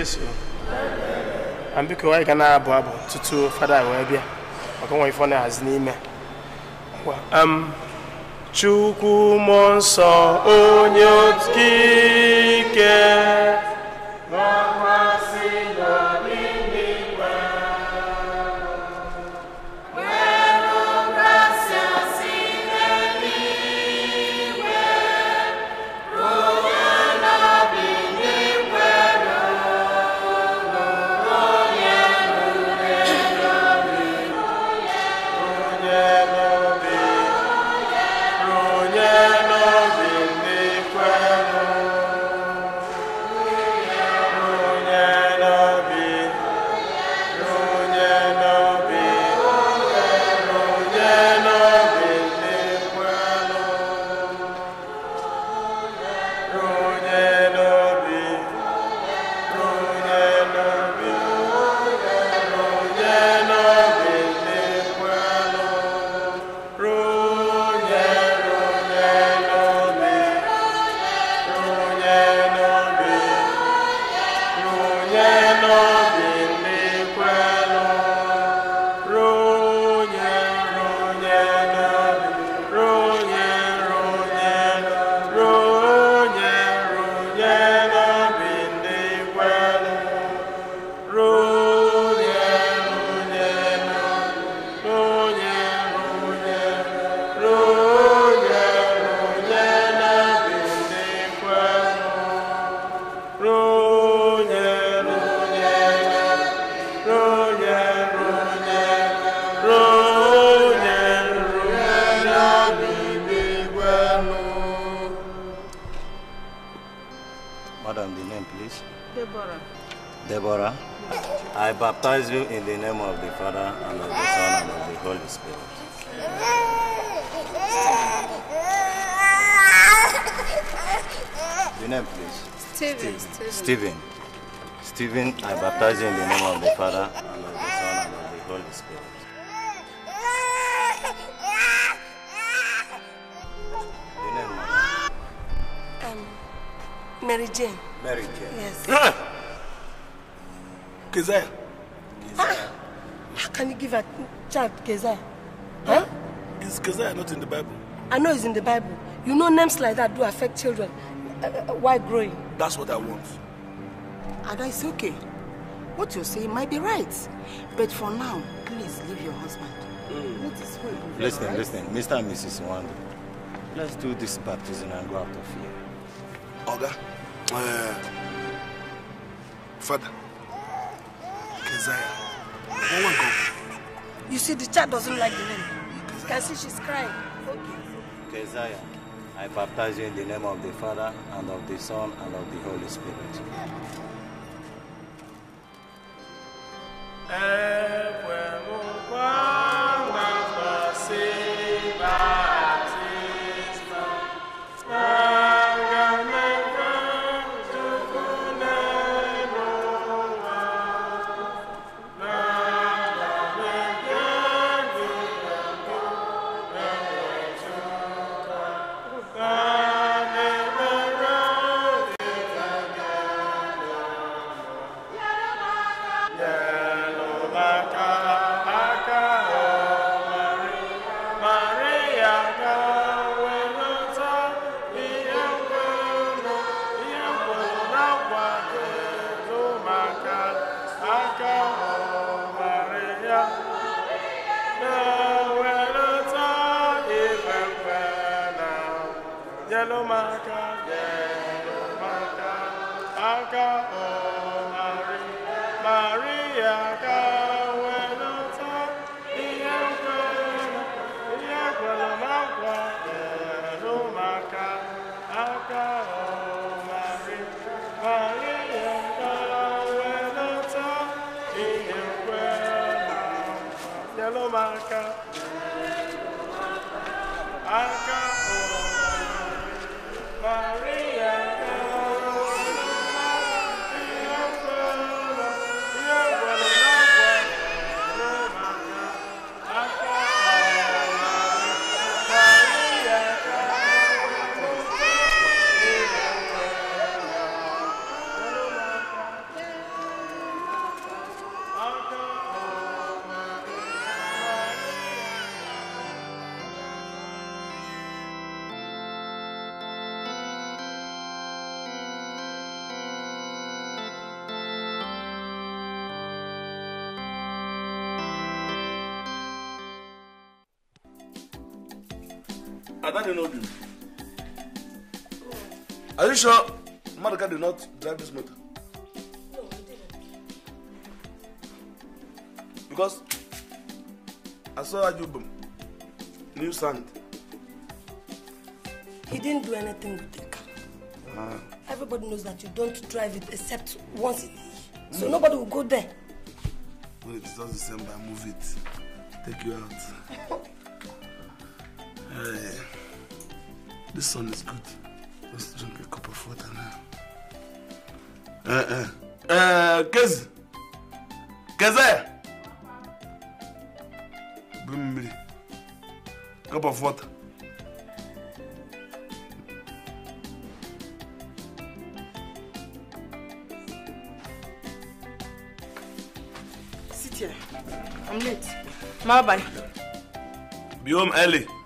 Yesu na na-abụ abụ tutu fada wee bịa maka ifo na-ahazi n'ime Chukwu nsọ onye baptize you in the name of the Father, and of the Son, and of the Holy Spirit. Your name, please. Stephen. Stephen. Stephen. I baptize you in the name of the Father, and of the Son, and of the Holy Spirit. Your name, madam? Um, Mary Jane. Mary Jane. Yes. Keziah. can you give a child Keza? Huh? Is Keza not in the Bible? I know it's in the Bible. You know names like that do affect children uh, uh, uh while growing. That's what I want. Ada, it's okay. What you're saying might be right. But for now, please leave your husband. Mm. Let Listen, right? listen. Mr. and Mrs. Wanda, let's do this baptism and go out of here. Oga, uh, Father, Keziah go. You see, the child doesn't like the name. You can see she's crying. Okay. Keziah, I baptize you in the name of the Father, and of the Son, and of the Holy Spirit. Mmadụ n'obi m. Are you sure Maduka did not drive this motor? No, he didn't. Because I saw Ajubum, new sand. He didn't do anything with the car. Ah. Everybody knows that you don't drive it except once a day. Mm. So nobody will go there. When it's not December, move it. Take you out. hey. This sun is good. Let's drink a cup of water now. Uh, uh. Uh, Kez. Keze. Bumbi. cup of water. Sit here. I'm late. bye.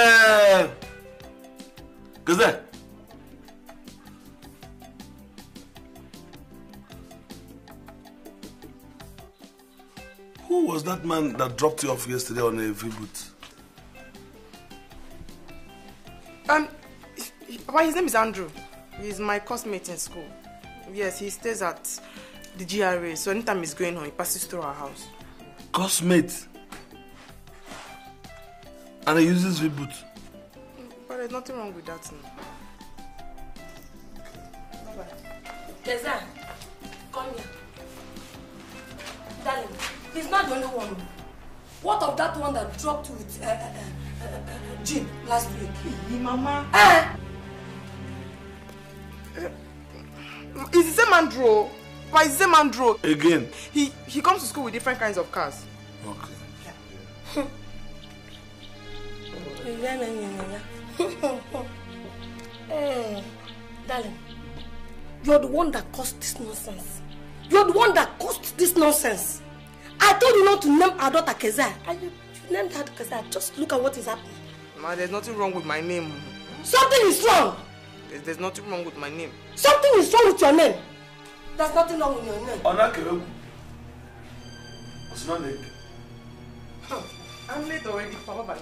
Ee, Who was that man that dropped you off yesterday on a V-boot? Um, well, his name is Andrew. He's my classmate in school. Yes, he stays at the GRA, so anytime he's going home, he passes through our house. Classmate and he uses reboot. But there's nothing wrong with that. No. Deza, come here. Darling, he's not the only one. What of that one that dropped with uh, uh, uh, uh, uh Jim last week? Hey, Mama. Eh? Is the same Andrew? same Andrew? Again. He he comes to school with different kinds of cars. nonsense. You're the one that caused this nonsense. I told you not to name our daughter Kezia. And you, named her Kezia. Just look at what is happening. Ma, there's nothing wrong with my name. Something is wrong. There's, there's nothing wrong with my name. Something is wrong with your name. There's nothing wrong with your name. Onakewegu. What's not like? I'm late already, Papa.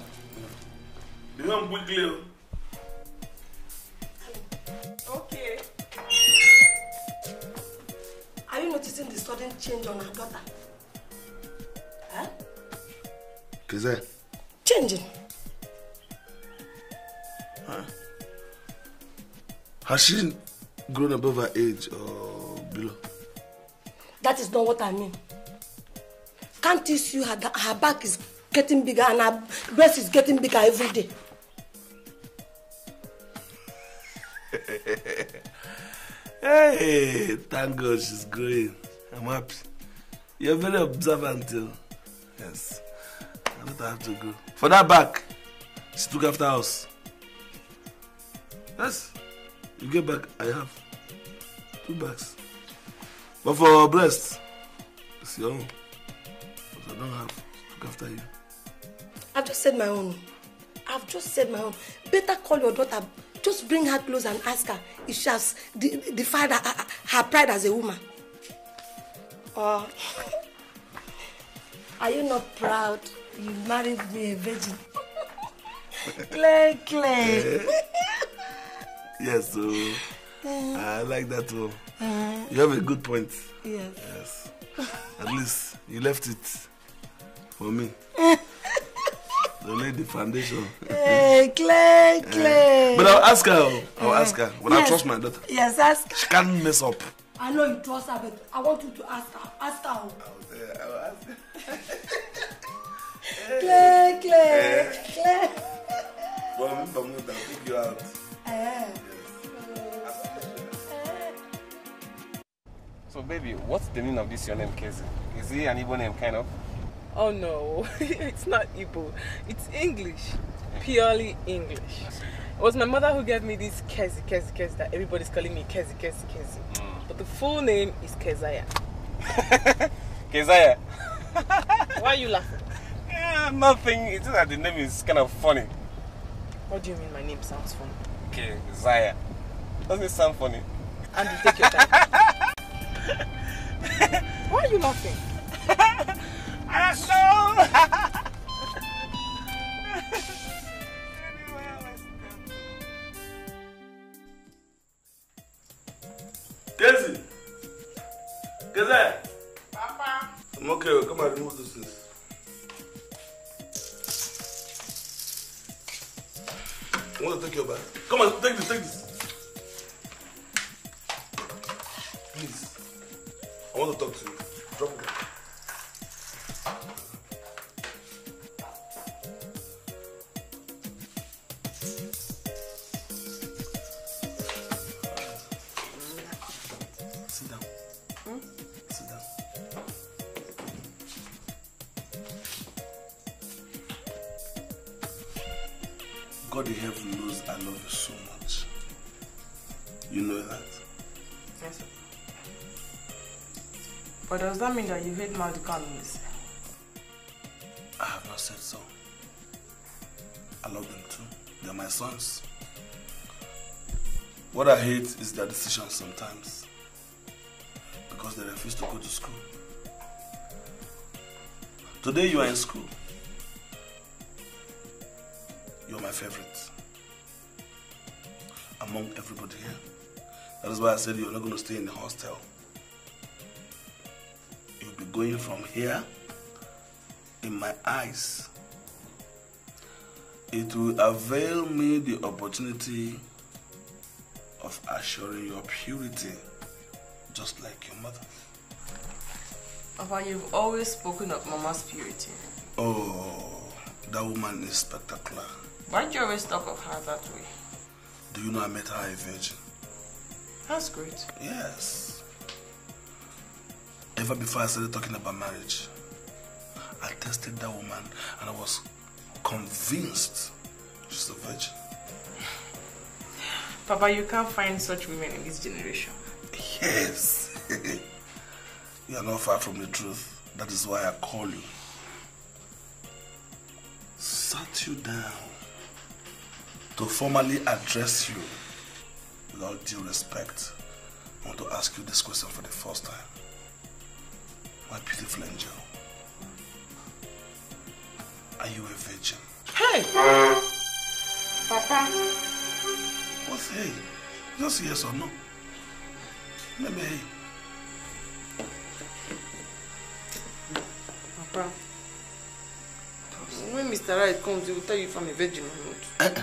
You don't book Okay. noticing the sudden change on her daughter? Huh? Kizé. Changing. Huh? Has she grown above her age or below? That is not what I mean. Can't you see her, her back is getting bigger and her breast is getting bigger every day? Hey, thank God she's growing. I'm happy. You're very observant, too. Oh. Yes. I don't have to go. For that back, she took after us. Yes. You get back, I have two bags. But for breast, it's your own. But I don't have. Look after you. I've just said my own. I've just said my own. Better call your daughter Just bring her close and ask her if she has defied her, her, pride as a woman. Or oh. are you not proud you married me a virgin? clay, clay. yes, so uh, I like that one. Oh. Uh, uh-huh. you have a good point. Yes. Yes. At least you left it for me lay the foundation. hey, eh, Clay, eh. Clay. Uh, but I'll ask her. I'll uh, ask her. But yes, I trust my daughter. Yes, ask. She can't mess up. I know you trust her, but I want you to ask her. Ask her. I'll, eh, I'll ask her. Clay, Clay, uh, Clay. Well, I'm i pick you out. Uh, So, baby, what's the meaning of this your name, Casey? Is he an Igbo name, kind of? oh no, it's not Igbo, it's English, purely English. It was my mother who gave me this Kezi Kezi Kezi that everybody's calling me Kezi Kezi Kezi. Mm. But the full name is Kezaya. Kezaya? Why are you laughing? Yeah, nothing. It's just that the name is kind of funny. What do you mean my name sounds funny? Kezaya. Doesn't it sound funny? And you take your time. Why are you laughing? asshole! Daisy! Gazette! Papa! I'm okay, come and remove this. things. I want to take your bag. Come on, take this, take this. Please. I want to talk to you. Drop it. God in heaven knows I love you so much. You know that? Yes, sir. But does that mean that you hate Maldika and I have not said so. I love them too. They're my sons. What I hate is their decisions sometimes. Because they refuse to go to school. Today you are in school. You're my favorite among everybody here. That is why I said you're not going to stay in the hostel. You'll be going from here in my eyes. It will avail me the opportunity of assuring your purity, just like your mother. Papa, you've always spoken of Mama's purity. Oh, that woman is spectacular. Why'd you always talk of her that way? Do you know I met her a virgin? That's great. Yes. Ever before I started talking about marriage, I tested that woman and I was convinced she's a virgin. Papa, you can't find such women in this generation. Yes. you are not far from the truth. That is why I call you. Sat you down to formally address you with all due respect, I want to ask you this question for the first time. My beautiful angel, are you a virgin? Hey! Papa! What's hey? Just yes or no? Let me hey. Papa, when Mr. Right comes, he will tell you if I'm a virgin or not. Eh, eh.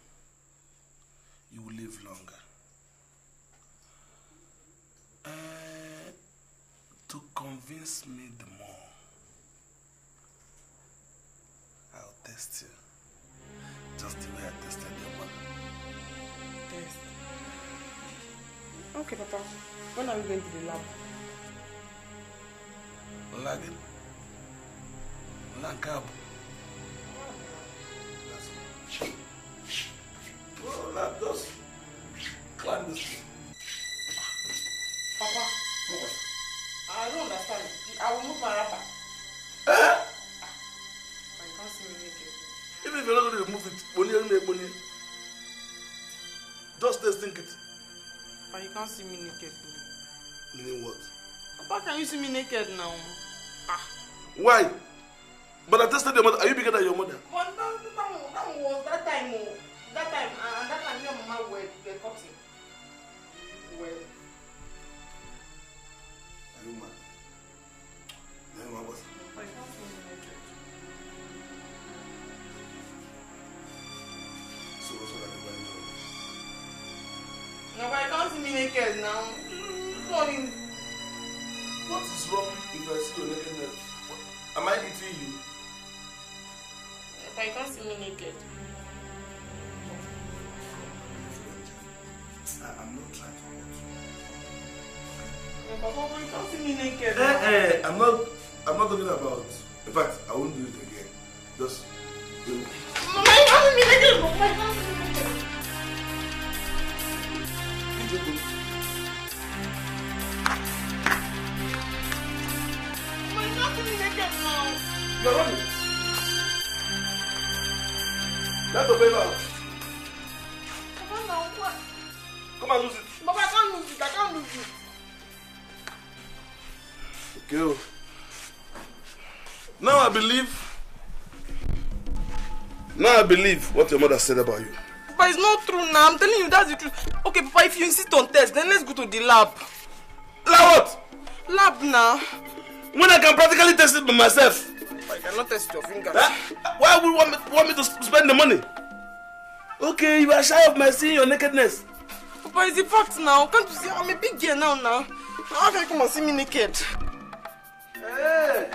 test me the more, I'll test you. Just the way I tested your mother. Test. Okay, Papa. When are we going to the lab? Lagging. Lagging. àwọn mú parapa. ẹ. ọ̀kan sí mi ní Even if you're not going to remove it poni ẹni mẹ́ẹ̀ poni just stay stink it. but you can't see me naked though. meaning what. papa can you see me naked now. ah. why. but i tested your mother are you bigger than your mother. but that that that was that time oh. that time and that time your mama were were cutting well. are you mad. one was? so what's I do Nobody comes to me naked now. Mm, what is? What is wrong if I see you naked Am I eating you? If I can't see me naked. I'm not trying to hurt you. But how can you see me naked? Eh, eh, I'm not. I'm not talking about. In fact, I won't do it again. Just. You know. Mama, you haven't been again. Mama, You're running. Let the baby out. Papa, now what? Come and lose it. Papa, I can't lose it. I can't lose it. Okay. Now I believe. Now I believe what your mother said about you. But it's not true now. I'm telling you that's the truth. Okay, Papa, if you insist on test, then let's go to the lab. Lab what? Lab now. When I can practically test it by myself. But I cannot test your fingers. Huh? Why would you want me, want me to spend the money? Okay, you are shy of my seeing your nakedness. Papa, it's a fact now. Can't you see? I'm a big girl now, now. Now how can you come and see me naked? Hey!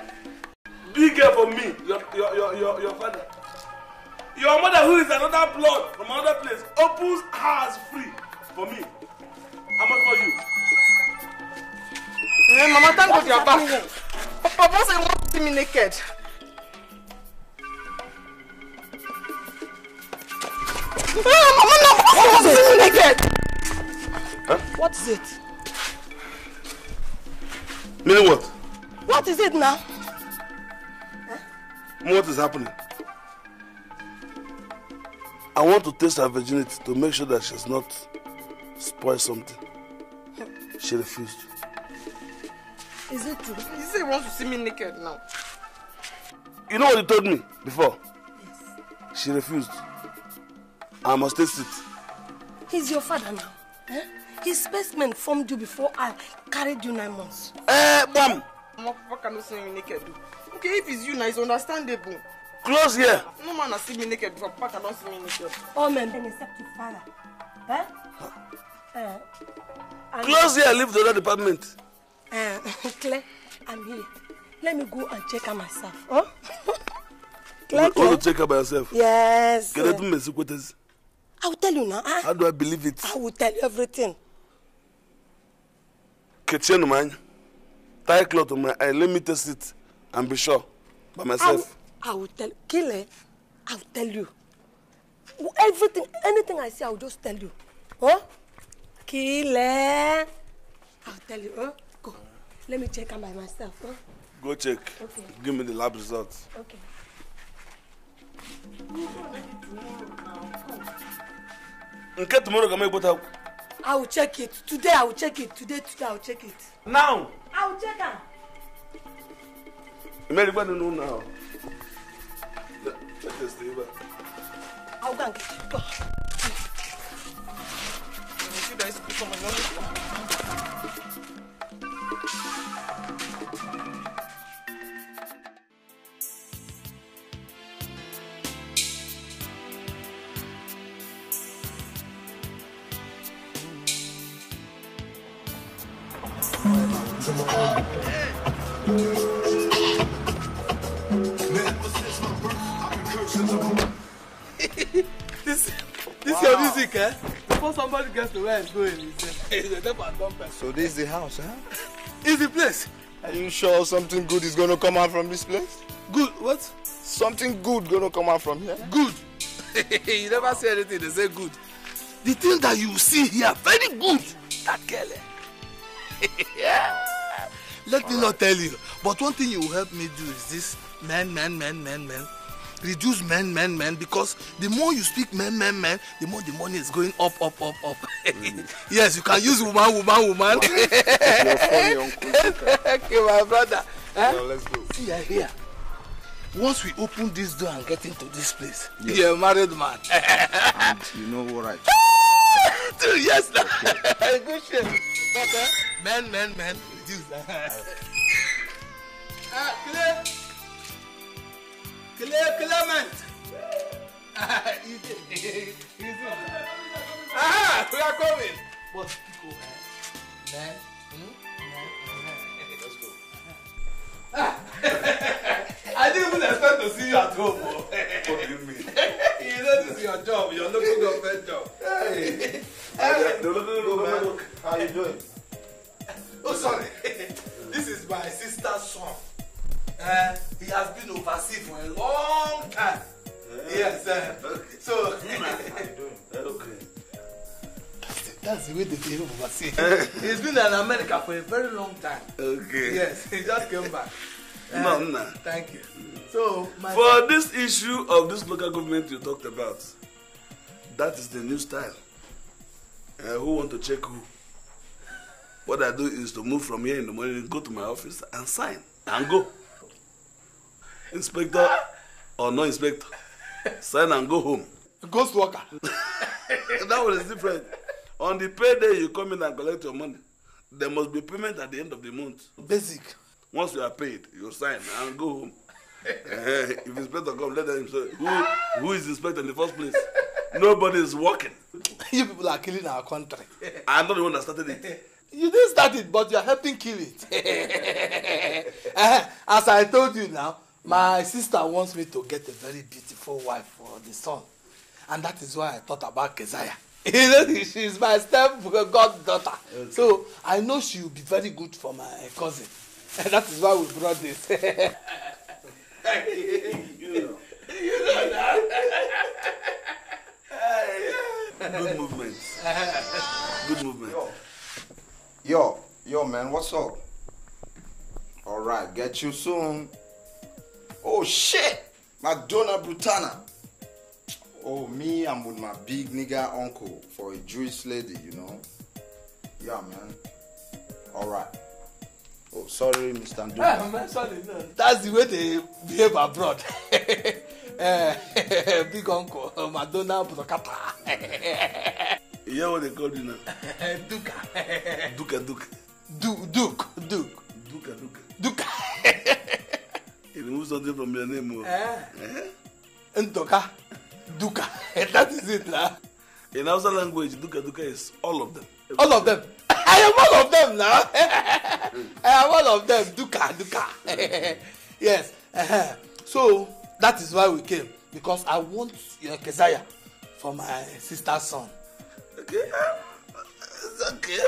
you girl for me, your, your, your, your, your father. Your mother, who is another blood from another place, opens hers free for me. How much for you? Hey, eh, Mama, thank God you are back. Papa said you want see me naked. Ah, Mama, no, Papa said you want naked. Huh? What is it? Meaning what? What is it now? what is happening? I want to test her virginity to make sure that she's not spoiled something. She refused. Is it true? He said he wants to see me naked now. You know what he told me before? Yes. She refused. I must test it. He's your father now. Eh? His spaceman formed you before I carried you nine months. Eh, hey, mom! What can you see me naked? okay if it's you na it's understandable. close here. no man has seen me naked before papa don see me naked. all men dey accept you father. Eh? Uh, close here leave the other department. Uh, clear i'm here let me go and check her myself. Huh? Oh? clear clear. you want check her by yourself. yes. Can I do my kwetesi. i will tell you now. Huh? how do i believe it. i will tell you everything. kechenu man. anya tie cloth on my eye let me test it. I'm be sure by myself. I, will tell Kile, I will tell you. Everything, anything I say, I will just tell you. huh? Kile, I will tell you. huh? Go. Let me check am by myself. huh? Go check. Okay. Give me the lab results. Okay. Nke tomorrow ga make go I will check it. Today I will check it. Today, today I will check it. Now. I will check am. You may do you know now? Let us stay back. I'll go and get you. You guys become another music, eh? Before somebody gets to where it's going, it's a type of dumb So this is the house, huh? It's the place. Are you sure something good is going to come out from this place? Good, what? Something good going to come out from here? Good. you never say anything, they say good. The thing that you see here, very good. That girl, eh? yeah. Let All me right. not tell you, but one thing you help me do is this Man, man, man, man, man reduce men, men, men, because the more you speak men, men, men, the more the money is going up, up, up, up. yes, you can use woman, woman, woman. okay, my brother. Huh? Eh? No, let's go. See, I hear. Once we open this door and get into this place, yes. you're a married man. and you know what I. Two years now. Okay. Good shit. Okay. Men, men, men. Reduce that. ah, clear. Cle Clement. you did. You Aha, we are coming. But Pico, man, hmm? man, let's go. I didn't even expect to see you at home. what do you mean? you know this is your job, You're your local government job. Hey, hey. No, no, no, no, no, no, How you doing? Oh, sorry. this is my sister's son uh, he has been overseas for a long time. Yeah. Yes. Uh, okay. So. okay. That's the, that's the way they behave overseas. Eh. He's been in America for a very long time. Okay. Yes, he just came back. Uh, no, no. Thank you. So, my for this issue of this local government you talked about, that is the new style. Uh, who want to check who? What I do is to move from here in the morning, go to my office and sign and go inspector ah! or no inspector sign and go home. ghost worker. that one is different on the payday you come in and collect your money there must be payment at the end of the month. basic. once you are paid you sign and go home. Eh, if inspector come let them say who who is inspector in the first place nobody is working. you people are killing our country. i'm not the one that started it. you didn't start it but you are helping kill it. Eh, as i told you now My sister wants me to get a very beautiful wife for the son, and that is why I thought about Keziah. you know, she is my step goddaughter. Okay. So I know she will be very good for my cousin. And that is why we brought this. you know. You know that. good movement. Good movement. yo, yo, man, what's up? All right, get you soon. Oh shit! Madonna Brutana. Oh, me, I'm with my big nigga uncle for a Jewish lady, you know? Yeah, man. All right. Oh, sorry, Mr. Ndoka. Eh, man, sorry, no. That's the way they behave abroad. uh, big uncle, Madonna Brutana. you hear what they call you now? Duka. Duka, Duka. Du- Duke, Duke. Duka, Duke. Duke remove something from your name. Eh? Eh? Ntoka, Duka. that is it. Nah. In Hausa language, Duka Duka is all of them. Everything. All of them. I am all of them now. I am all of them. Duka Duka. yes. Uh-huh. So that is why we came because I want your Keziah for my sister's son. Okay. It's okay.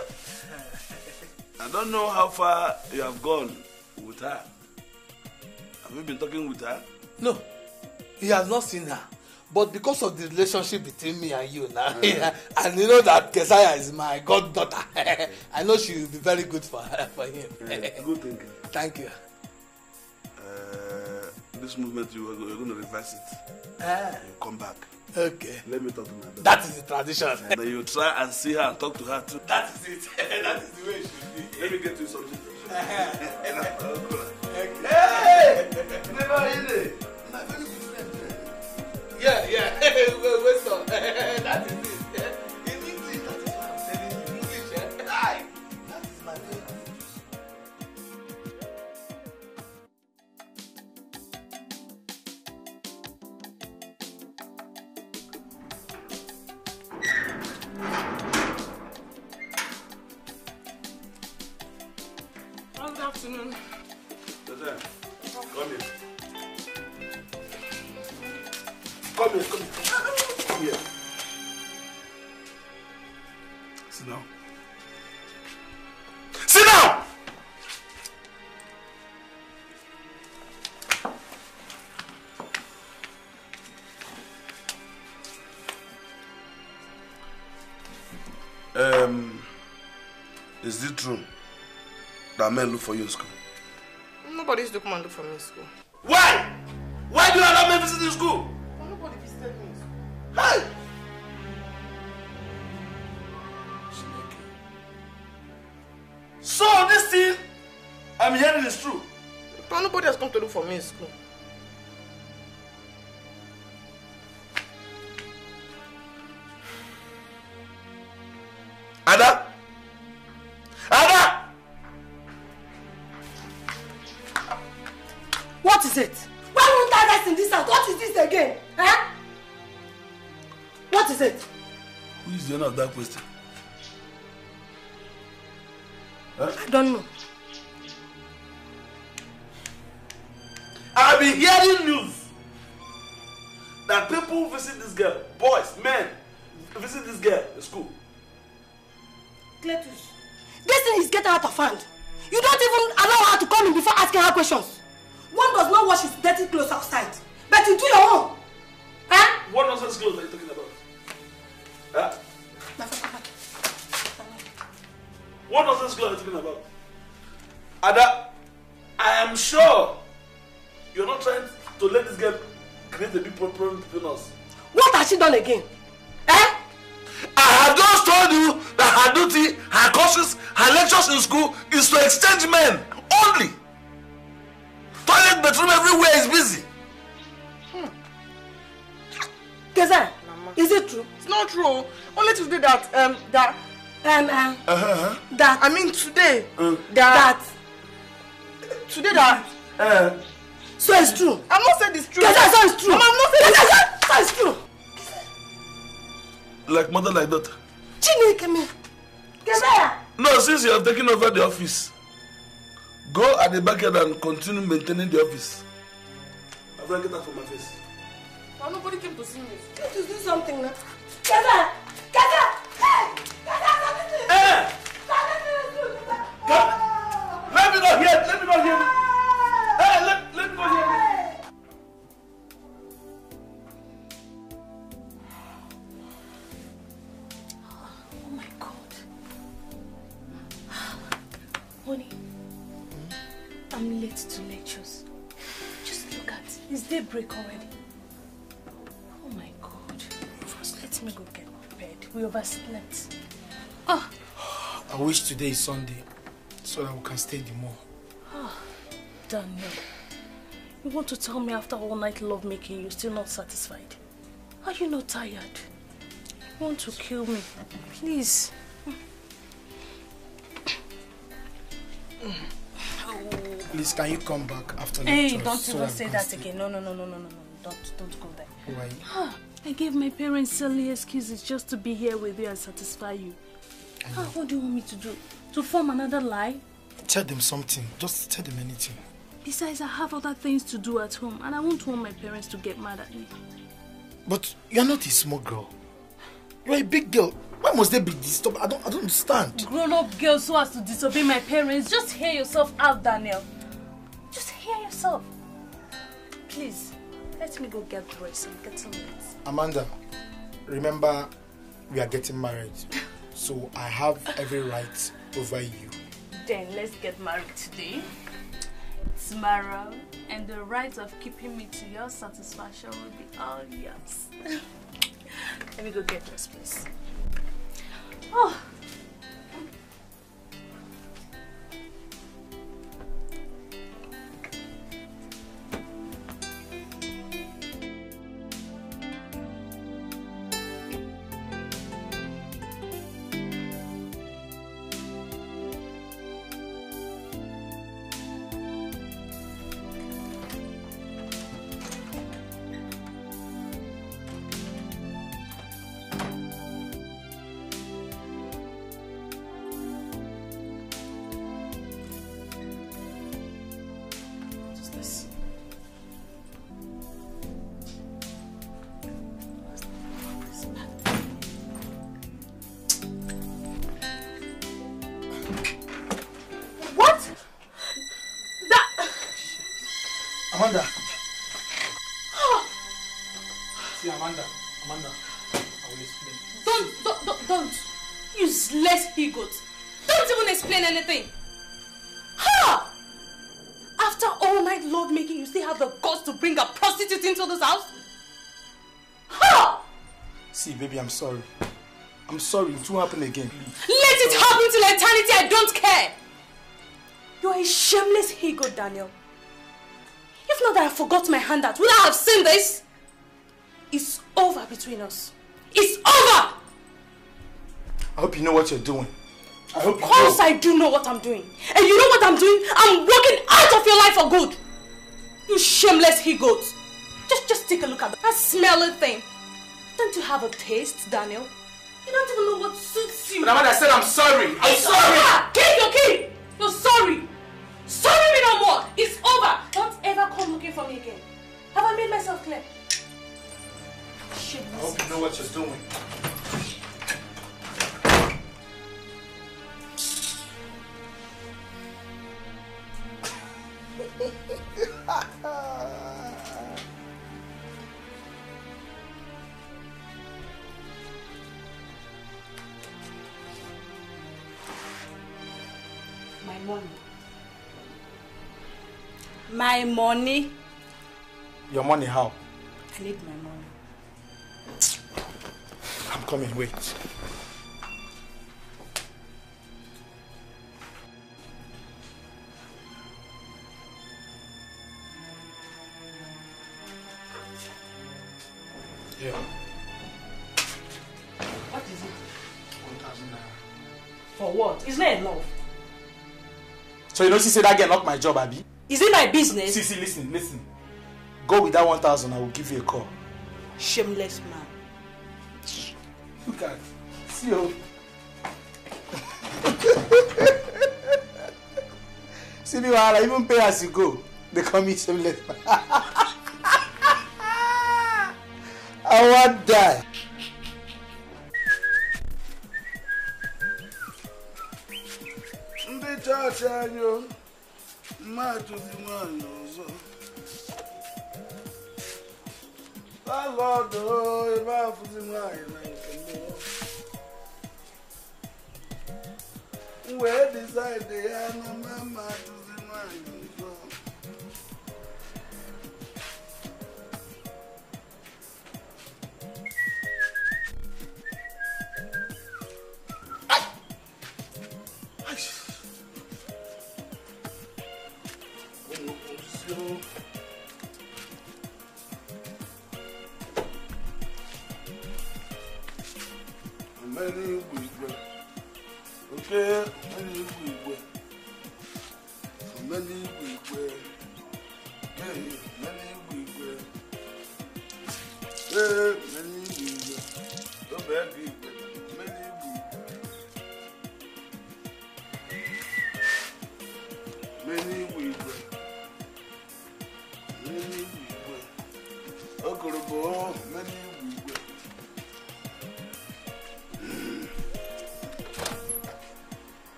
I don't know how far you have gone with her. Have you been talking with her? No, he has not seen her. But because of the relationship between me and you now, mm. and you know that Kesaya is my goddaughter, I know she will be very good for her, for him. Yeah, good thinking. Thank you. Uh, this movement, you are going to reverse it. Uh, you come back. Okay. Let me talk to my daughter. That is the tradition. And then you try and see her and talk to her too. That is it. that is the way it should be. Let me get you something. Yeah, yeah. Wait, wait, That is it. afternoon. Come here. Come here, come here. that men look for you in school? Nobody used come and look for me in school. Why? Why do you allow men visit in school? nobody visited me in school. Hey! So this thing I'm hearing is true. But nobody has come to look for me in school. like mother like daughter. Chineke me. Kebea. No, since you have taken over the office, go at the backyard and continue maintaining the office. to get that from my face. Now nobody came to see me. Can't you do something now? Kebea. Kebea. Hey. Let me see. Hey. Let me not hear. Let me not hear. Ah! Hey, let I'm late to lectures. Just look at it. It's daybreak already. Oh my god. First, let me go get bed. We overslept. Oh. I wish today is Sunday so that we can stay the more. Oh, Daniel. You want to tell me after all night love making you're still not satisfied? Are you not tired? You want to kill me? Please. Mm. Please, can you come back after lecture? Hey, don't so even say that again. No, no, no, no, no, no, no. Don't, don't go there. Why? Ah, I gave my parents silly excuses just to be here with you and satisfy you. Ah, what do you want me to do? To form another lie? Tell them something. Just tell them anything. Besides, I have other things to do at home and I won't want my parents to get mad at me. But you're not a small girl. You're a big girl. Why must they be disturbed? I don't, I don't understand. Grown-up girls who has to disobey my parents, just hear yourself out, Daniel. Just hear yourself. Please, let me go get dressed and get some rest. Amanda, remember, we are getting married. so I have every right over you. Then let's get married today, tomorrow, and the right of keeping me to your satisfaction will be all yours. let me go get dressed, please. 哦 I'm sorry. I'm sorry, it won't happen again. Please. Let it happen till eternity, I don't care! You're a shameless he-goat, Daniel. If not that I forgot my handout, would I have seen this? It's over between us. It's over! I hope you know what you're doing. I hope of course know. I do know what I'm doing. And you know what I'm doing? I'm walking out of your life for good. You shameless he-goat. Just, just take a look at that smelly thing. Don't you have a taste, Daniel? You don't even know what suits you. But I said I'm sorry. I'm it's sorry. Over. Get your key. You're sorry. Sorry me no more. It's over. Don't ever come looking for me again. Have I made myself clear? Shit, I hope you know what you're doing. My money. Your money how? I need my money. I'm coming, wait. Yeah. What is it? 1,000 naira. For what? Isn't not enough. So you don't see I that Not lock my job, Abby? Is it my business? See, see, listen, listen. Go with that one thousand. I will give you a call. Shameless man. Look at See you. Oh. see me, I even pay as you go. They call me shameless man. I want die. Ndị chọọchị anyị o matuzimwana uzo valodo vafuzimwana ikembo we decide yana mamatuzimwana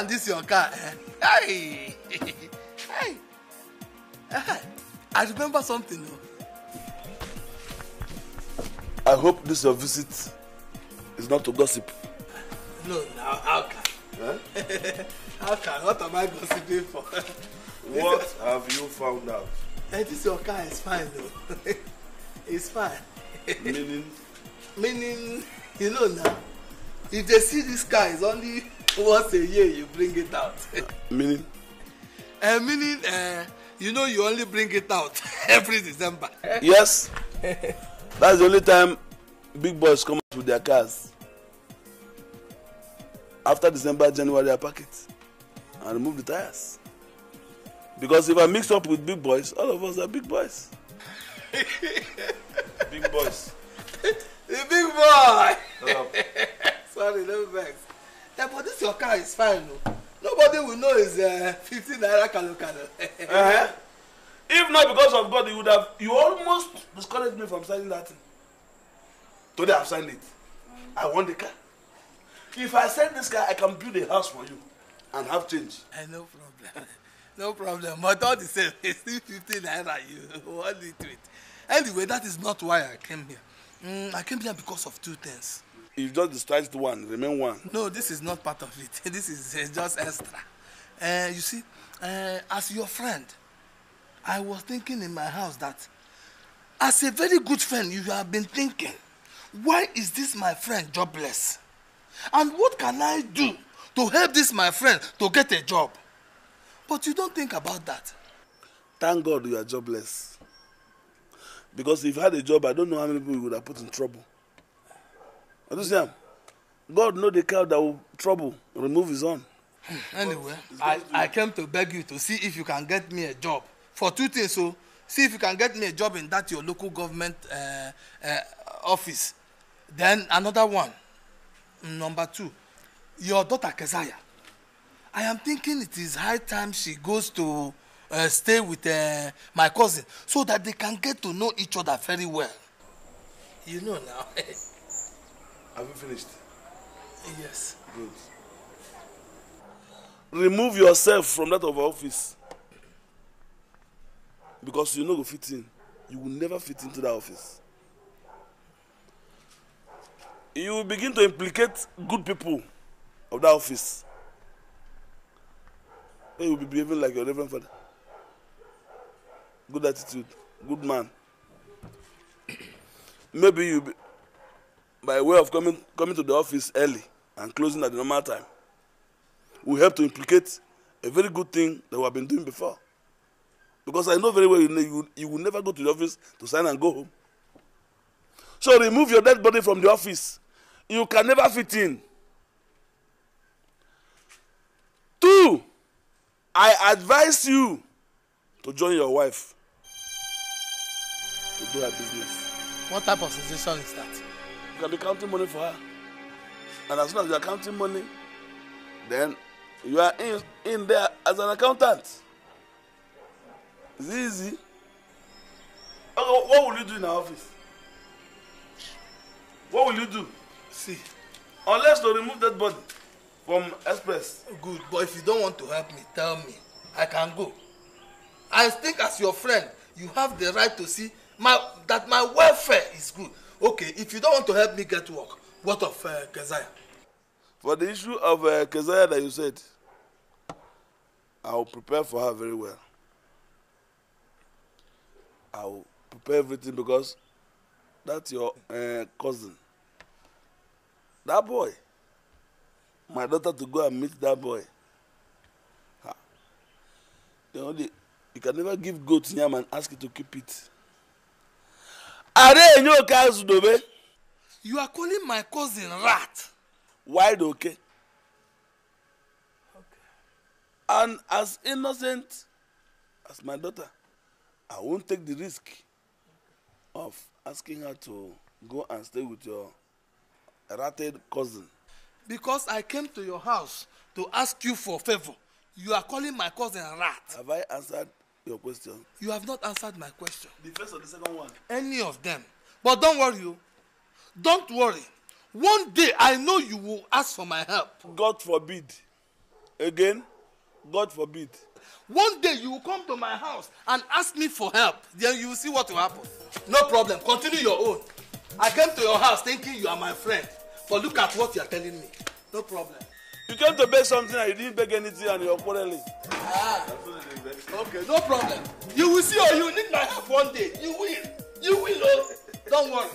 and this your car hey hey eh, i remember something oh. i hope this your visit is not to gossip. no now how can. Huh? Eh? how can what am i gossiping for. what have you found out. Hey, eh, this your car is fine though. Oh. it's fine. Meaning? Meaning, you know now, if they see this car is only once a year you bring it out. meaning? Uh, eh, meaning uh, eh, you know you only bring it out every december. yes that's the only time big boys come out with their cars after december january i pack it and remove the tires because if i mix up with big boys all of us are big boys. big boys. the big boy. sorry no vex that but this your car is fine o nobody will know it's uh, fifty naira kalo kalo. uh-huh. if not because of god you would have you almost discouraged me from signing that thing today i've signed it i want the car if i sell this car i can build a house for you and have change. Uh, no problem no problem but all the same it's still fifty naira you want it with anyway that is not why i came here mm, i came here because of two things. If just discharged one remain one. no this is not part of it this is uh, just extra uh, you see uh, as your friend i was thinking in my house that as a very good friend you have been thinking why is this my friend jobless and what can i do to help this my friend to get a job but you don't think about that. thank god you are jobless because if you had a job i don't know how many people you would have put in trouble understand god know the cow that will trouble remove his own. anyway i i came to beg you to see if you can get me a job for two things o so, see if you can get me a job in that your local government uh, uh, office then another one number two your daughter keziah i am thinking it is high time she goes to uh, stay with uh, my cousin so that they can get to know each other very well you know now. Have you finished? Yes. Good. Remove yourself from that of our office. Because you know go fit in. You will never fit into that office. You will begin to implicate good people of that office. you will be behaving like your reverend father. Good attitude, good man. Maybe you by way of coming, coming to the office early and closing at the normal time we help to implicate a very good thing that we have been doing before. Because I know very well you, you, you will never go to the office to sign and go home. So remove your dead body from the office. You can never fit in. Two, I advise you to join your wife to do her business. What type of sensation is that? can be counting money for her. And as soon as you are counting money, then you are in, in there as an accountant. It's easy. Okay, what will you do in our office? What will you do? See. Unless to remove that body from express. Good, but if you don't want to help me, tell me. I can go. I think as your friend, you have the right to see my, that my welfare is good. Okay, if you don't want to help me get work, what of uh, Keziah? For the issue of uh, Keziah that you said, I will prepare for her very well. I will prepare everything because that's your uh, cousin. That boy, my daughter to go and meet that boy. Ha. You, know, the, you can never give goat yam and ask it to keep it. Are enye oke azụ dobe. You are calling my cousin rat. Wide oke. Okay. And as innocent as my daughter, I won't take the risk of asking her to go and stay with your ratted cousin. Because I came to your house to ask you for favor. You are calling my cousin rat. Have I answered your question. You have not answered my question. The first or the second one? Any of them. But don't worry, you. Oh. Don't worry. One day I know you will ask for my help. God forbid. Again, God forbid. One day you will come to my house and ask me for help. Then you will see what will happen. No problem. Continue your own. I came to your house thinking you are my friend. But look at what you are telling me. No problem. You came to beg something and you didn't beg anything and you're quarreling. Ah. Okay, no problem. You will see or you need my help one day. You will. You will, oh. Don't worry.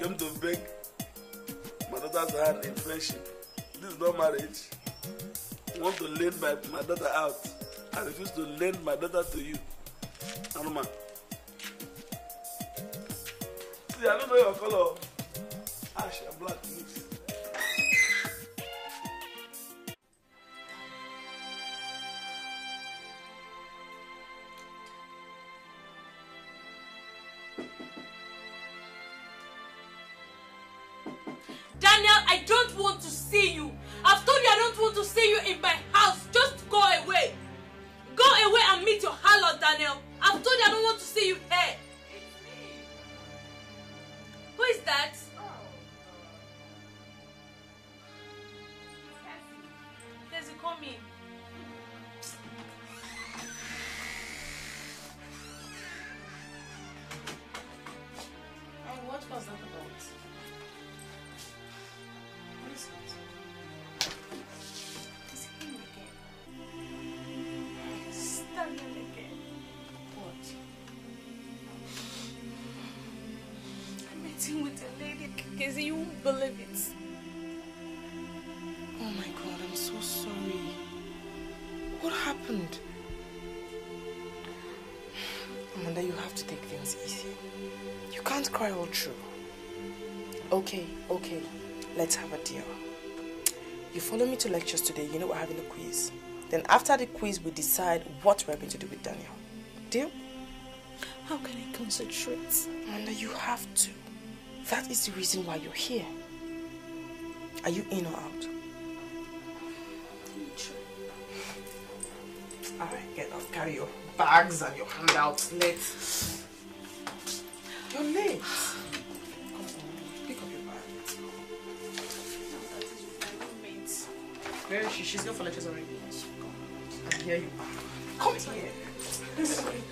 Came to beg my daughter's hand in friendship. This is not marriage. Want to lend my, my daughter out. I refuse to lend my daughter to you. Anuma. See, I don't know your color. Ash and black. see you in eh, my with a lady, because you won't believe it. Oh my God, I'm so sorry. What happened? Amanda, you have to take things easy. You can't cry all through. Okay, okay, let's have a deal. You follow me to lectures today, you know we're having a quiz. Then after the quiz, we decide what we're going to do with Daniel. Deal? How can I concentrate? Amanda, you have to. That is the reason why you're here. Are you in or out? Alright, get up. Carry your bags and your handouts. Let's... You're late. Come on, pick up your bag. Where is she? She's gone for lectures already. I hear you. Come here.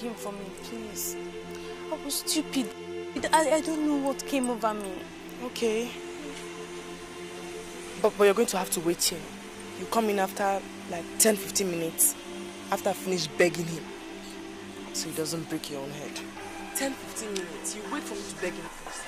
him for me, please. I was stupid. I, I don't know what came over me. Okay. But, but you're going to have to wait here. You come in after like 10, 15 minutes. After I finish begging him. So he doesn't break your own head. 10, 15 minutes. You wait for me to beg him first.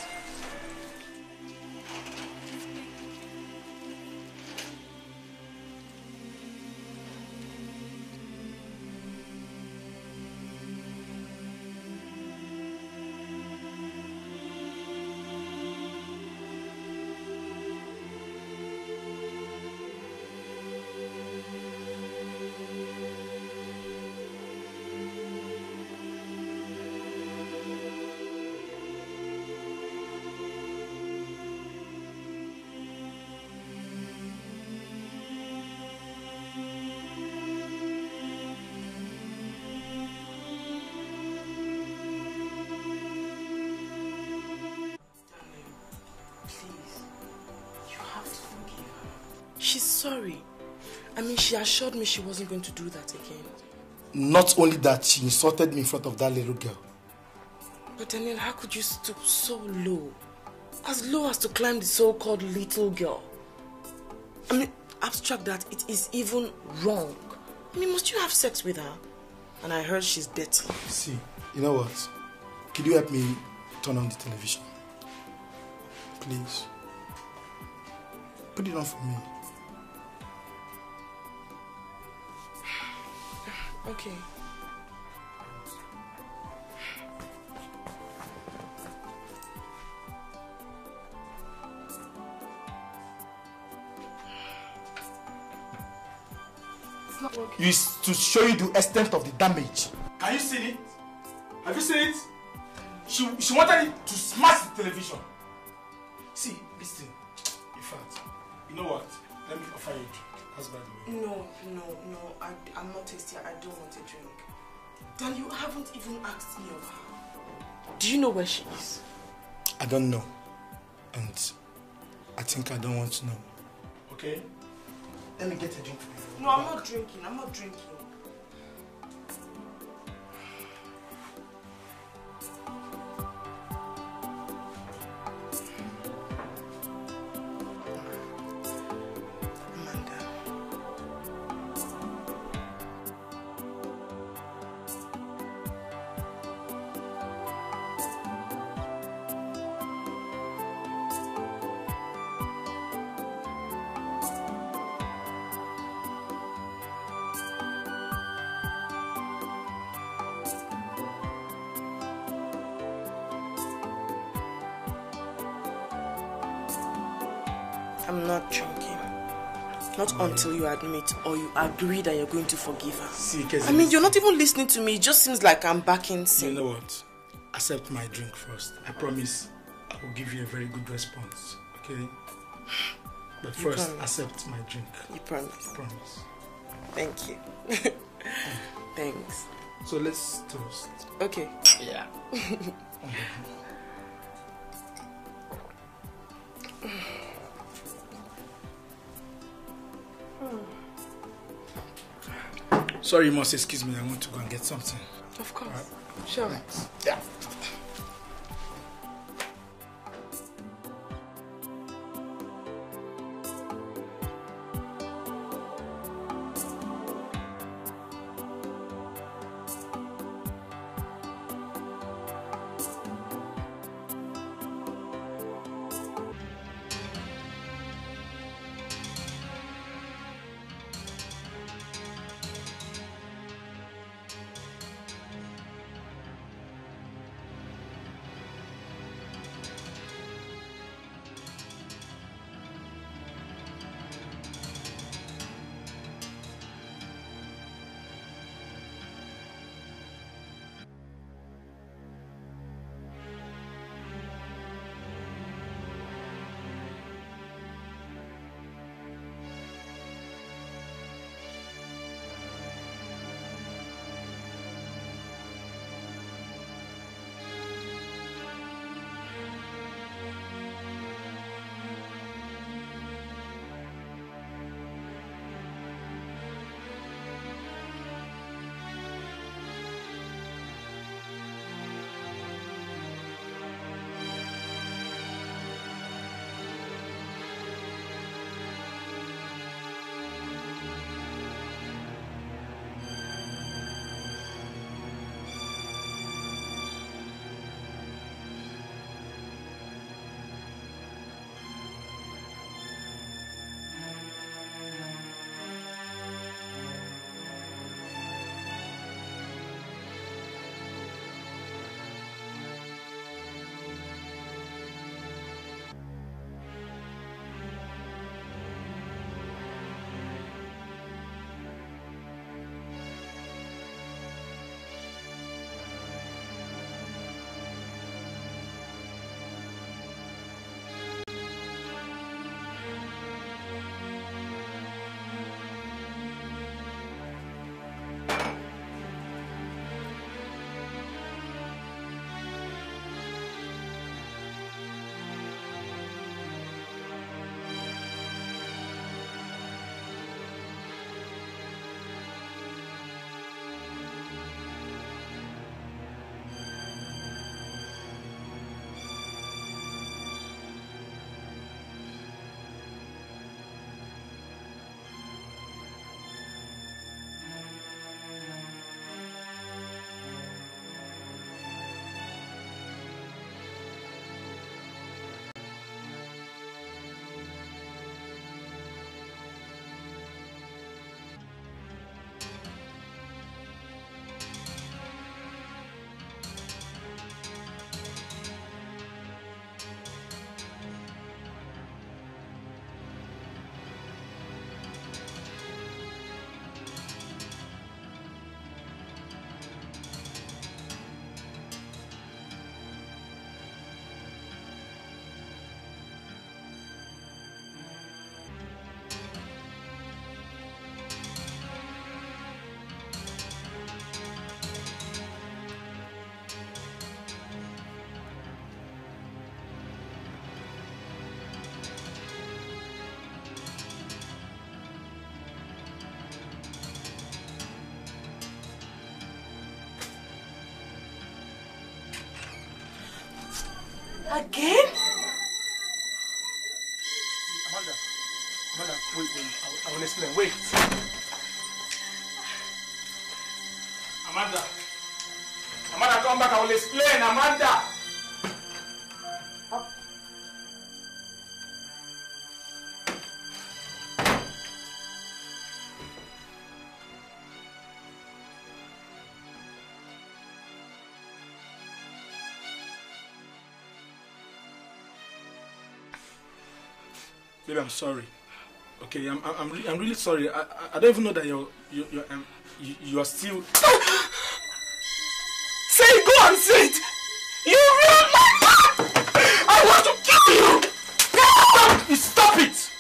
She assured me she wasn't going to do that again. Not only that, she insulted me in front of that little girl. But Daniel, how could you stoop so low? As low as to climb the so-called little girl. I mean, abstract that, it is even wrong. I mean, must you have sex with her? And I heard she's dirty. See, you know what? Could you help me turn on the television? Please. Put it on for me. Okay. is to show you the extent of the damage. Can you see it? Have you seen it? She, she wanted it to smash the television. See, listen. In fact, you know what? Let me offer you. husband? No, no, no. I, I'm not thirsty. I don't want a drink. Then you haven't even asked me of her. Do you know where she is? I don't know. And I think I don't want to know. Okay? Let me get a drink for you. No, I'm not drinking. I'm not drinking. until you admit or you agree that you're going to forgive her. See, I mean, you're not even listening to me. It just seems like I'm backing sin. You know what? Accept my drink first. I promise I will give you a very good response. Okay? But first, accept my drink. You promise? I promise. Thank you. Thanks. So let's toast. Okay. Yeah. okay. Sorry, you must excuse me. I want to go and get something. Of course. Right. Sure. Yeah. Again? Amanda, Amanda, wait, wait. I, I will explain. Wait. Amanda. Amanda, come back. I will explain. Amanda. Baby, I'm sorry. Okay, I'm I'm I'm, really sorry. I, I don't even know that you're you you're um, you, you're still. say go and say it. You ruined my life. I want to kill you. Stop it. stop it.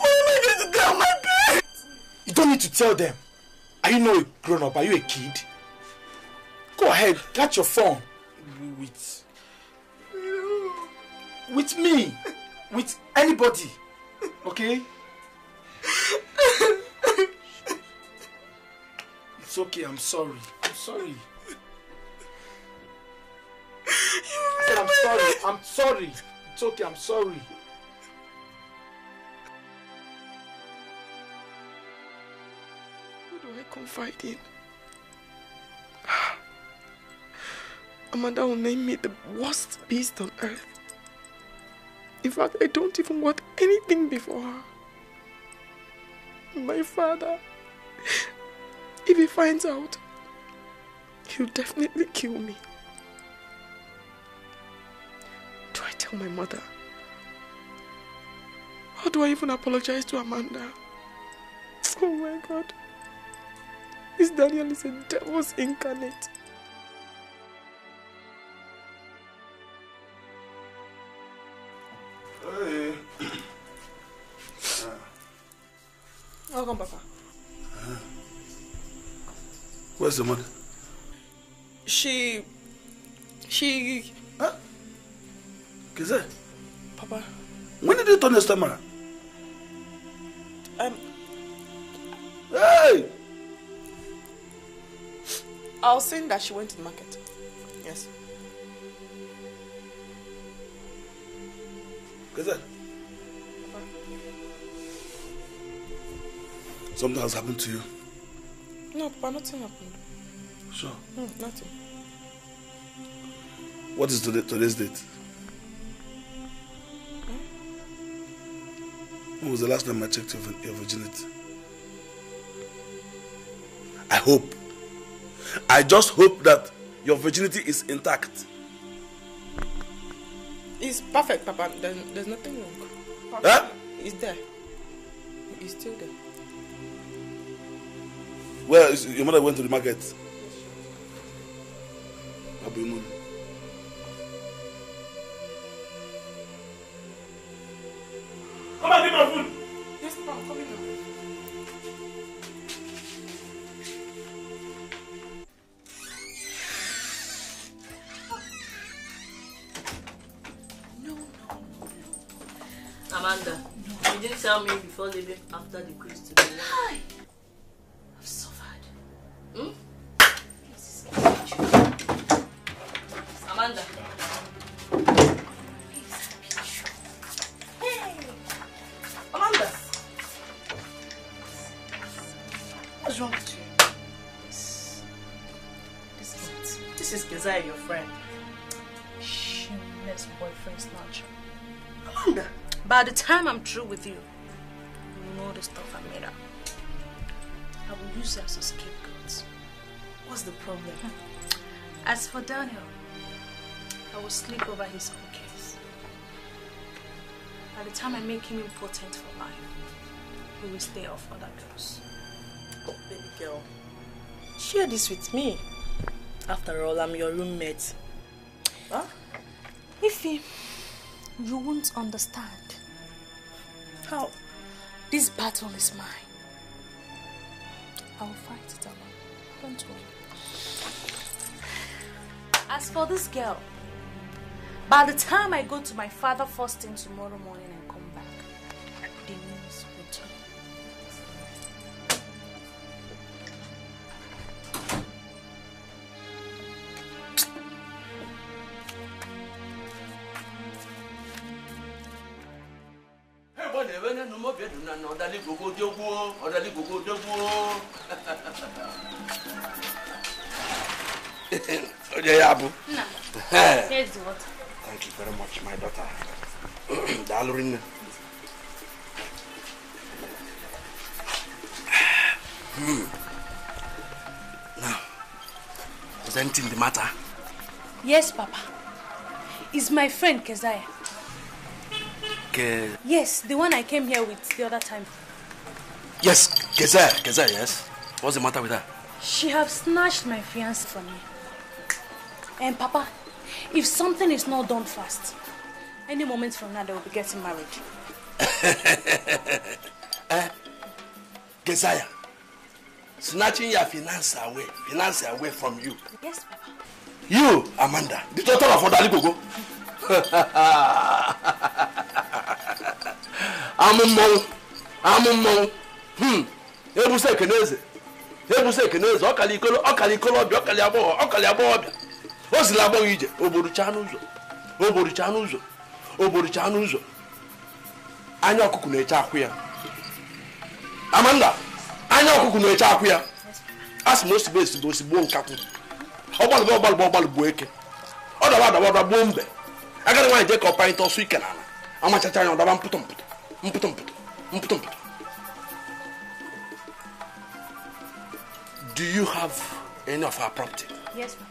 Oh my my God, you don't need to tell them. Are you no grown up? Are you a kid? Go ahead, catch your phone with. With me! With anybody! Okay? It's okay, I'm sorry. I'm sorry. I said, I'm sorry. I'm sorry. It's okay, I'm sorry. Who do I confide in? Amanda will name me the worst beast on earth. In fact, I don't even want anything before her. My father, if he finds out, he'll definitely kill me. Do I tell my mother? How do I even apologize to Amanda? Oh my God. This Daniel is a devil's incarnate. Papa. Huh. Where's the mother? She... She... Huh? Kizé? Papa. When did you turn this time Um... Hey! I was saying that she went to the market. Yes. Kizé? Something has happened to you. No, Papa, nothing happened. Sure? No, nothing. What is today, today's date? Hmm? When was the last time I checked your, your virginity? I hope. I just hope that your virginity is intact. It's perfect, Papa. There's, there's nothing wrong. Papa, Huh? It's there. It's still there. Where is your mother went to the market? time I'm through with you, you know the stuff I made up. I will use you as a scapegoat. What's the problem? As for Daniel, I will sleep over his case. By the time I make him important for life, he will stay off other girls. Oh, baby girl, share this with me. After all, I'm your roommate. Huh? Ify, you won't understand. This battle is mine. I will fight it alone. Don't worry. As for this girl, by the time I go to my father first thing tomorrow morning, bɛ ne numɔ bɛ thank you very much my daughter. daalụ Hmm. Now, presenting the matter? Yes, Papa. Is my friend Keziah girl. Uh, yes, the one I came here with the other time. Yes, Gezel, Gezel, yes. What's the matter with her? She have snatched my fiancé from me. And Papa, if something is not done fast, any moment from now they will be getting married. eh? Geziah, snatching your finance away, finance away from you. Yes, Papa. You, Amanda, the daughter of Odali Gogo. amụ mmọnwụ amụ mmọnwụ hmm. ebusa ekeneze ebusa ekeneze ọkala ikolo ọkala ikolobịa ọkala agbọghọ ọkala agbọghọbịa o zila agbọghọ ije ogborucha n'ụzọ ogborucha n'ụzọ ogborucha n'ụzọ anya ọkụkụ na-eche akwụ ya amanda anya ọkụkụ na-eche akwụ ya a sị na osigbo esigbo osigbo nkakwụ ọgbalụgba ọgbalụgba ọgbalụgba eke ọ daba adaba ọdaba mbe agara nwaanyị jee ka ọ panyịta ọsọ ike n'ala amachacha anya ọdaba mpụtọ mpụtụ do you have any of our property yes ma'am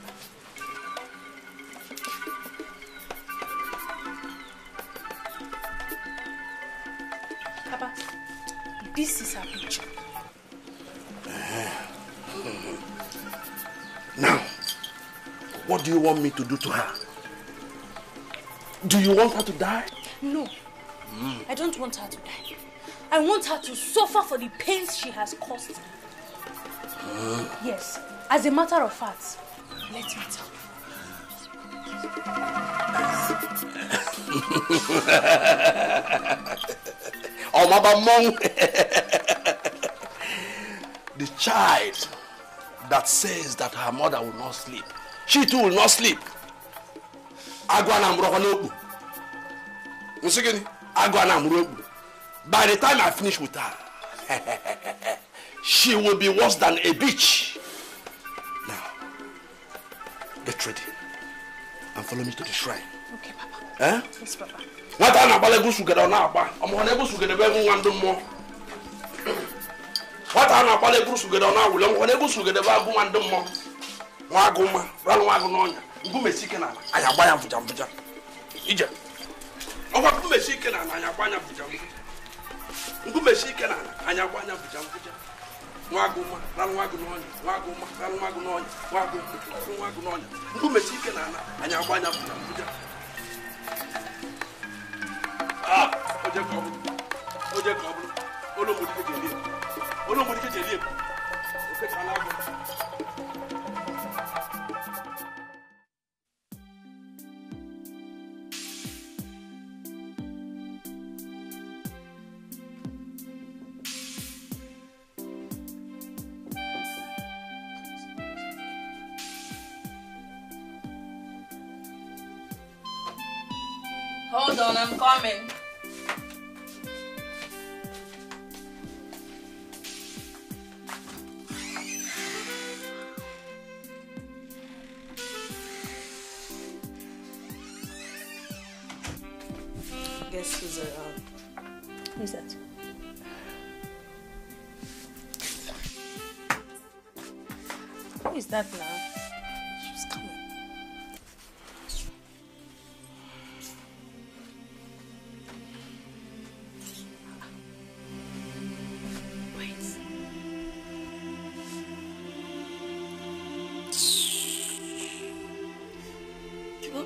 This is our picture. Uh-huh. Now, what do you want me to do to her? Do you want her to die? No, Mm. I don't want her to die. I want her to suffer for the pains she has caused. me. Yes, as a matter of fact, let me tell you. oh, Mama monk, the child that says that her mother will not sleep, she too will not sleep. Agwa na agụ a na-amụrụ by the time i finish with her she will be worse than a bitch now get ready and follow me to the shrine okay papa eh? yes papa nwata a na-agbala egwu sugede ọ na-agba ọmụhụ egwu sugede ọ na-awụli ọmụhụ egwu sugede bụ agụ nwa ndị mma nwa n'ọnya mgbu mesike na agba ya ọkwa nkumechi ike na ala anya kwa anya bụja nkwụja nkumechi ike na ala anya kwa anya bụja nkwụja nwa agụ nwa rarụ nwa agụ n'ọnya nwa agụ nwa rarụ nwa agụ n'ọnya nwa agụ nwa agụ n'ọnya nkumechi ike na ala anya kwa anya bụja nkwụja ah! oje ka ọ bụrụ oje ka ọ bụrụ olu mgbodike ji eli ebu olu mgbodike ji eli ebu ofe ka na agụ Hold on, I'm coming.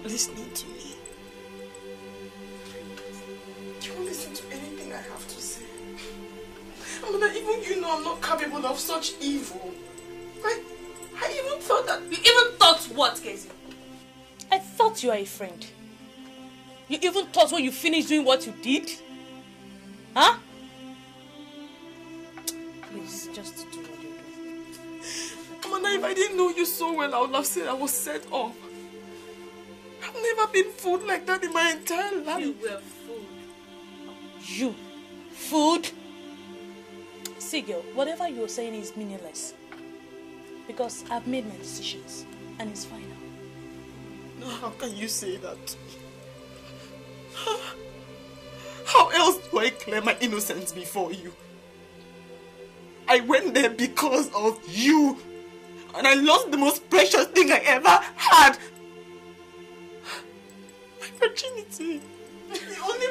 listening to me. You won't listen to anything I have to say. Mother, even you know I'm not capable of such evil. I, I even thought that... You even thought what, Casey? I thought you were a friend. You even thought when you finished doing what you did? Huh? Please, just do what you do. Amanda, if I didn't know you so well, I would have said I was set off never been fooled like that in my entire life. You were fooled. You? Fooled? See, girl, whatever you're saying is meaningless. Because I've made my decisions, and it's final. No, how can you say that? How else do I claim my innocence before you? I went there because of you. And I lost the most precious thing I ever had see. The only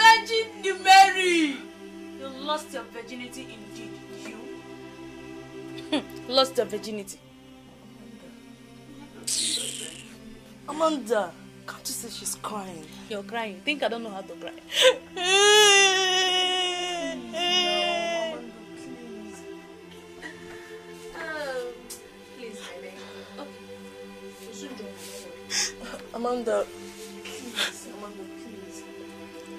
Virgin Mary! You lost your virginity indeed, you. lost your virginity. Amanda, can't you see she's crying? You're crying. Think I don't know how to cry. Amanda, please, Amanda, please.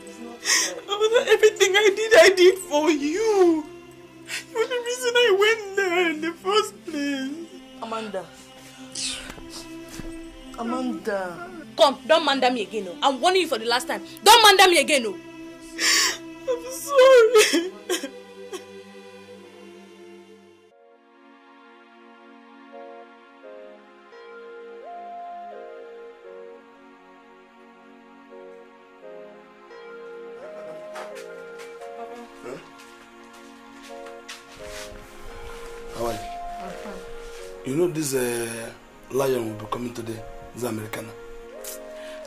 It's not fair. everything I did, I did for you. You were the reason I went there in the first place. Amanda. Amanda. Come, don't mander me again. Oh. I'm warning you for the last time. Don't mander me again. Oh. lion will be coming today. This American.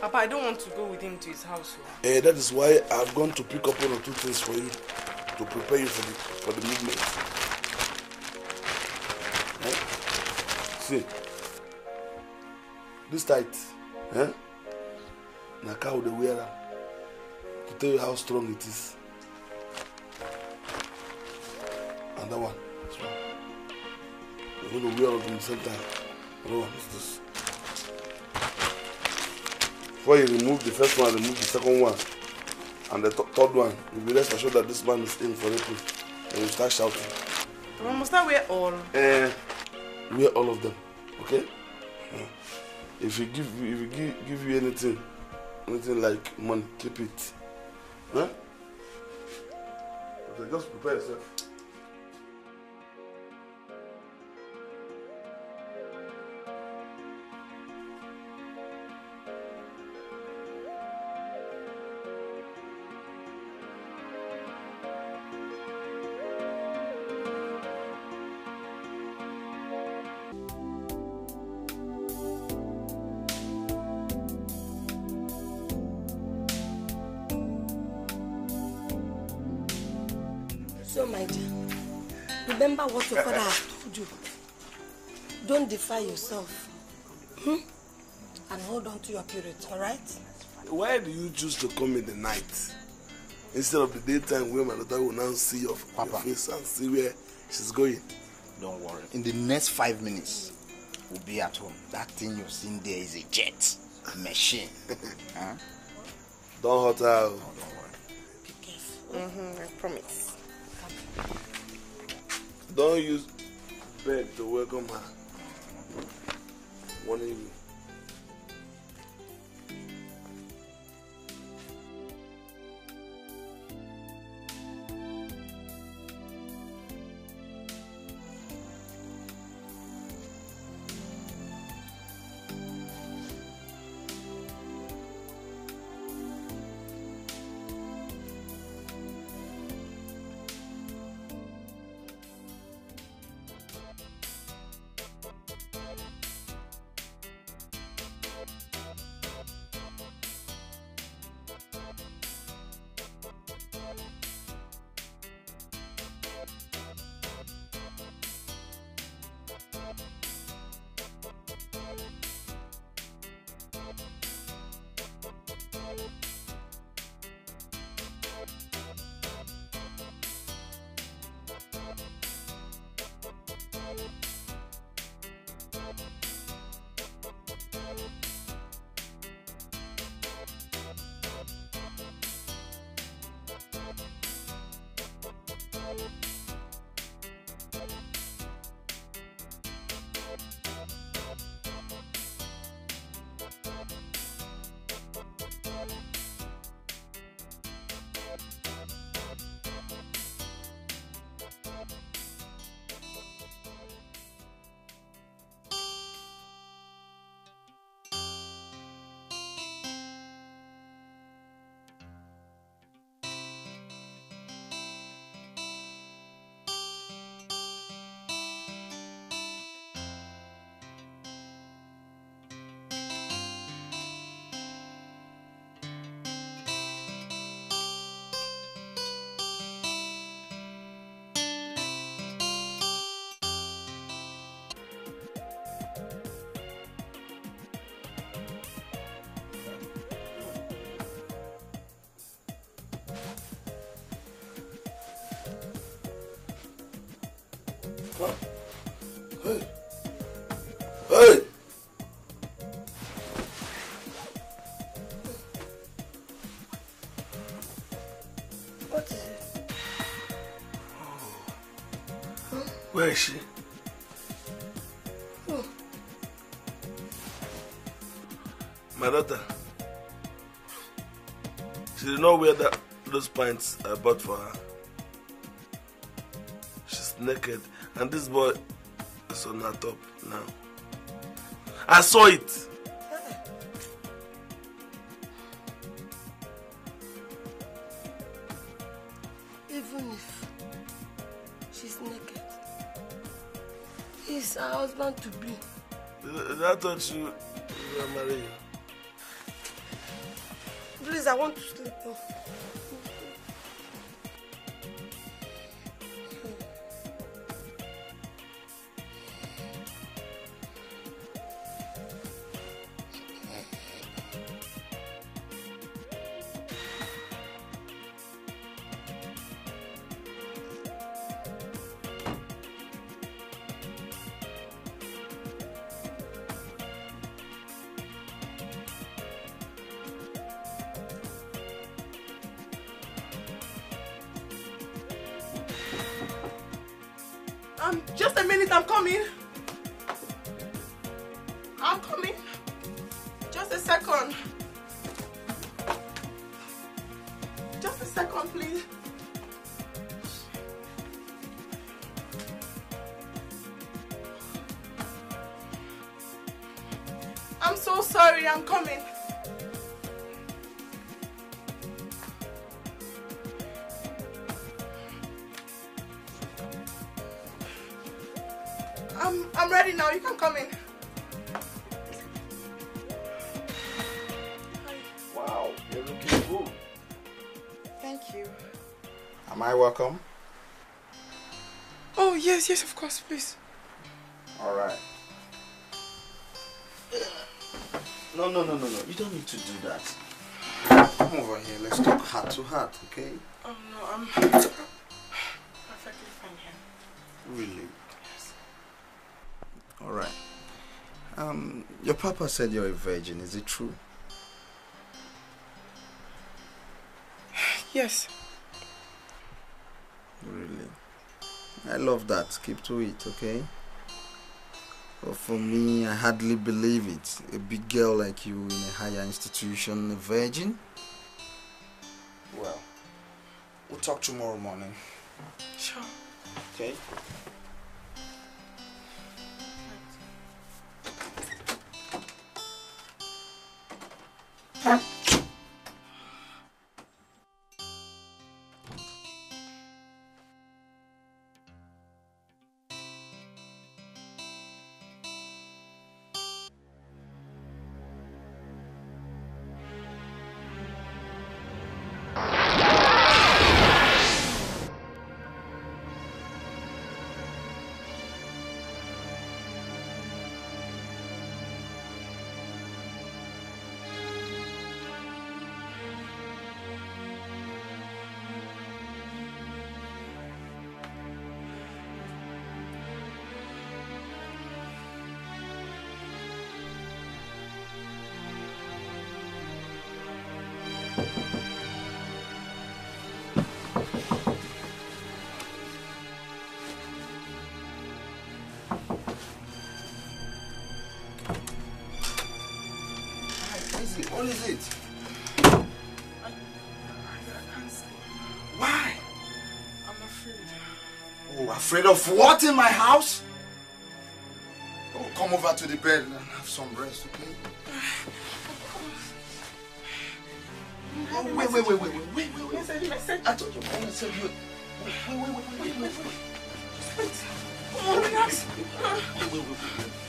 Papa, I don't want to go with him to his house. So. Oh. Eh, that is why I've gone to pick up one or two things for you to prepare you for the for the movement. Eh? See, this tight, eh? Na cow dey wear to tell you how strong it is. And that one, so, you're going to wear it at the same time. Another one is this. Before you remove the first one, remove the second one, and the th third one. You'll be rest assured that this man is in for raping. And you start shouting. We must I wear all? Uh, eh, wear all of them, okay? If you give, if you give, give you anything, anything like money, keep it. Huh? Okay, just prepare yourself. purify yourself hmm? and hold on to your purity, alright? Why do you choose to come in the night instead of the daytime where my daughter will now see your, Papa. your face and see where she's going? Don't worry. In the next five minutes, we'll be at home. That thing you've seen there is a jet machine. huh? Don't hurt her. don't worry. Be careful. Mm-hmm, I promise. Don't use bed to welcome her one of you. Hey. Hey. What is it? Oh. Where is she? Oh. My daughter. She did not wear that, those pants I bought for her. She's naked. And this boy is on her top now. I saw it. Eh. Even if she's naked, he's her husband to be. That thought you were marrying. Please, I want to sleep off. Please. All right. No, no, no, no, no. You don't need to do that. Come over here. Let's talk heart to heart, okay? Oh, no. I'm perfectly fine here. Really? Yes. All right. Um, your papa said you're a virgin. Is it true? Yes. I love that. Keep to it, okay? But for me, I hardly believe it. A big girl like you in a higher institution, a virgin. Well, we'll talk tomorrow morning. Sure. Okay. Afraid of what in my house? Oh, come over to the bed and have some rest, okay? Oh, wait, wait, wait, wait, wait, wait, wait, wait. wait, I told you, I want to you. Wait, wait, wait, wait, wait, wait. Just wait. Come on, relax. Wait, wait, wait, wait.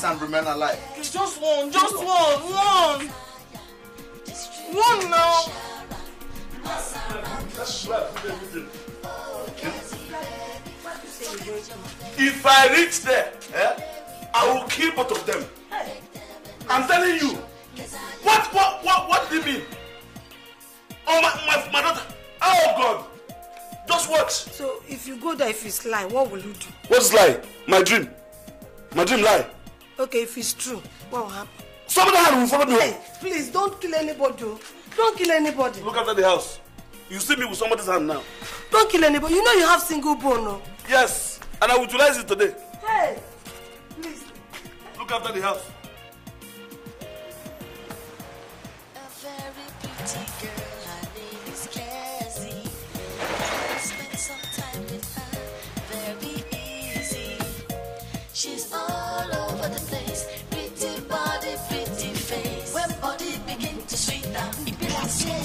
exist and remain alive. just one, just one, one. One now. If I reach there, eh, I will kill both of them. I'm telling you. What, what, what, what do you mean? Oh, my, my, my daughter. Oh, God. Just watch. So, if you go there, if it's lie, what will you do? What's lie? My dream. My dream lie. Okay, if it's true, what will happen? Somebody will follow me. Hey, please don't kill anybody. Oh. Don't kill anybody. Look after the house. You see me with somebody's hand now. Don't kill anybody. You know you have single bone, no? Oh. Yes, and I will utilize it today. Hey, please. Look after the house.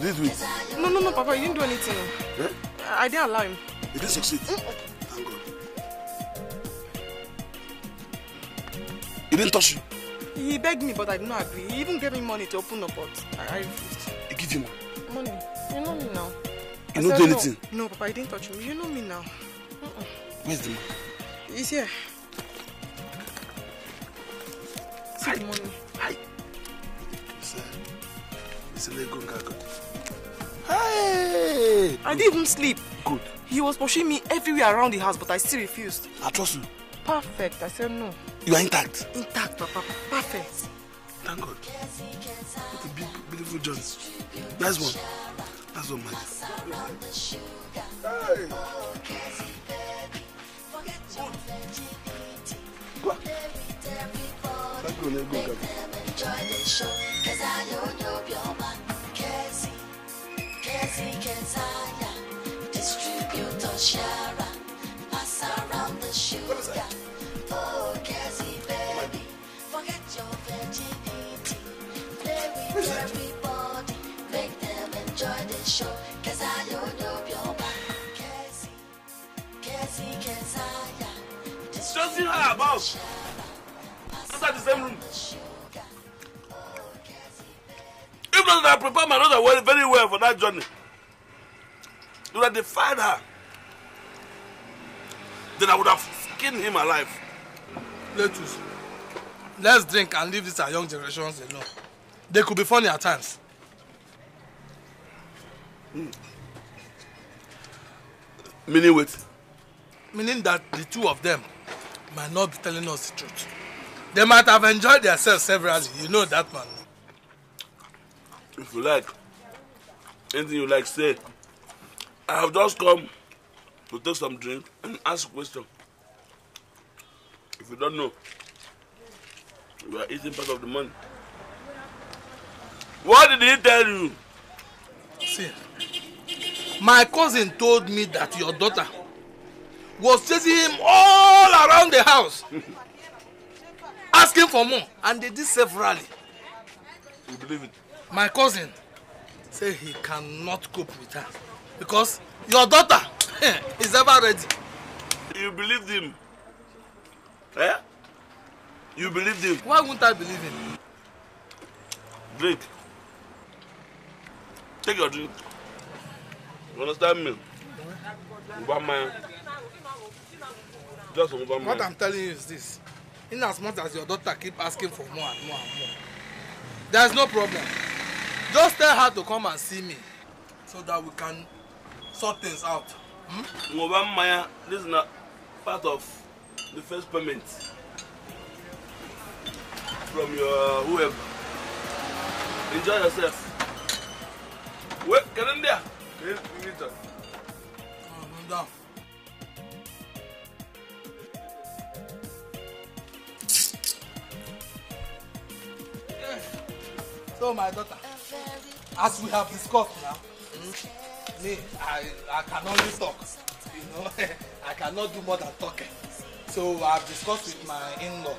Did he No, no, no, Papa, you didn't do anything. Eh? I, didn't allow him. He didn't succeed. Mm-mm. Thank God. He didn't touch you. He begged me, but I did not agree. He even gave me money to open up, but I, refused. He gave you money? Money. You know me now. You don't do anything? No, no, Papa, he didn't touch me. You know me now. Mm-mm. Where's the money? He's here. See the money. Hi. It's, uh, it's a Lego Gaga. Hey! I didn't even sleep. Good. He was pushing me everywhere around the house, but I still refused. I trust you. Perfect. I said no. You are intact. Intact, Papa. Perfect. Thank God. What a big, beautiful Jones. That's one. That's one, man. Hey! Go. Go. Go. Go. Go. Go. Go. Sharon, pass around the sugar. Oh, Cassie, baby, forget your virginity. Play with everybody, make them enjoy the show. Cause I don't know your man, Cassie. Cassie, Kazaya. Stressing her about. Inside the same room. Oh, if not, I prepared my daughter very well for that journey. You have defied her then I would have skinned him alive. Let's, let's drink and leave this our young generations alone. They could be funny at times. Mm. Meaning what? Meaning that the two of them might not be telling us the truth. They might have enjoyed themselves severally. You know that man. If you like, anything you like, say. I have just come to take some drink and ask question. If you don't know, you are eating part of the money. What did he tell you? See, my cousin told me that your daughter was chasing him all around the house, asking for more, and they did severally. You believe it? My cousin said he cannot cope with her because your daughter is ever ready. you believed him eh you believed him. why won't i believe him. drink take your drink you understand me ngwamaya just ngwamaya. what i'm telling you is this in as much as your daughter keep asking for more and more and more there's no problem just tell her to come and see me so that we can sort things out. Hmm? Ngoba hmm? Maya, this is not part of the first payment from your uh, whoever. Enjoy yourself. Wait, get in there. Get in there. Oh, no doubt. So, my daughter, as we have discussed now, mm -hmm me i i can only talk you know i cannot do more than talking so i've discussed with my in-law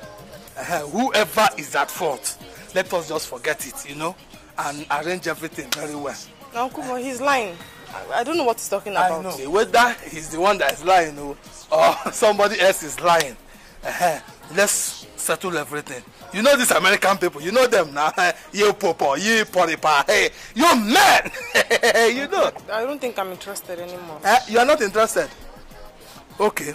uh, whoever is at fault let us just forget it you know and arrange everything very well. na nkumo he's lying I, i don't know what he's talking about. i know whether he's the one that is lying o oh, or somebody else is lying uh, let's settle everything you know these American people, you know them now. you popo, you poripa, hey, you man. you know. I don't think I'm interested anymore. Uh, you are not interested. Okay.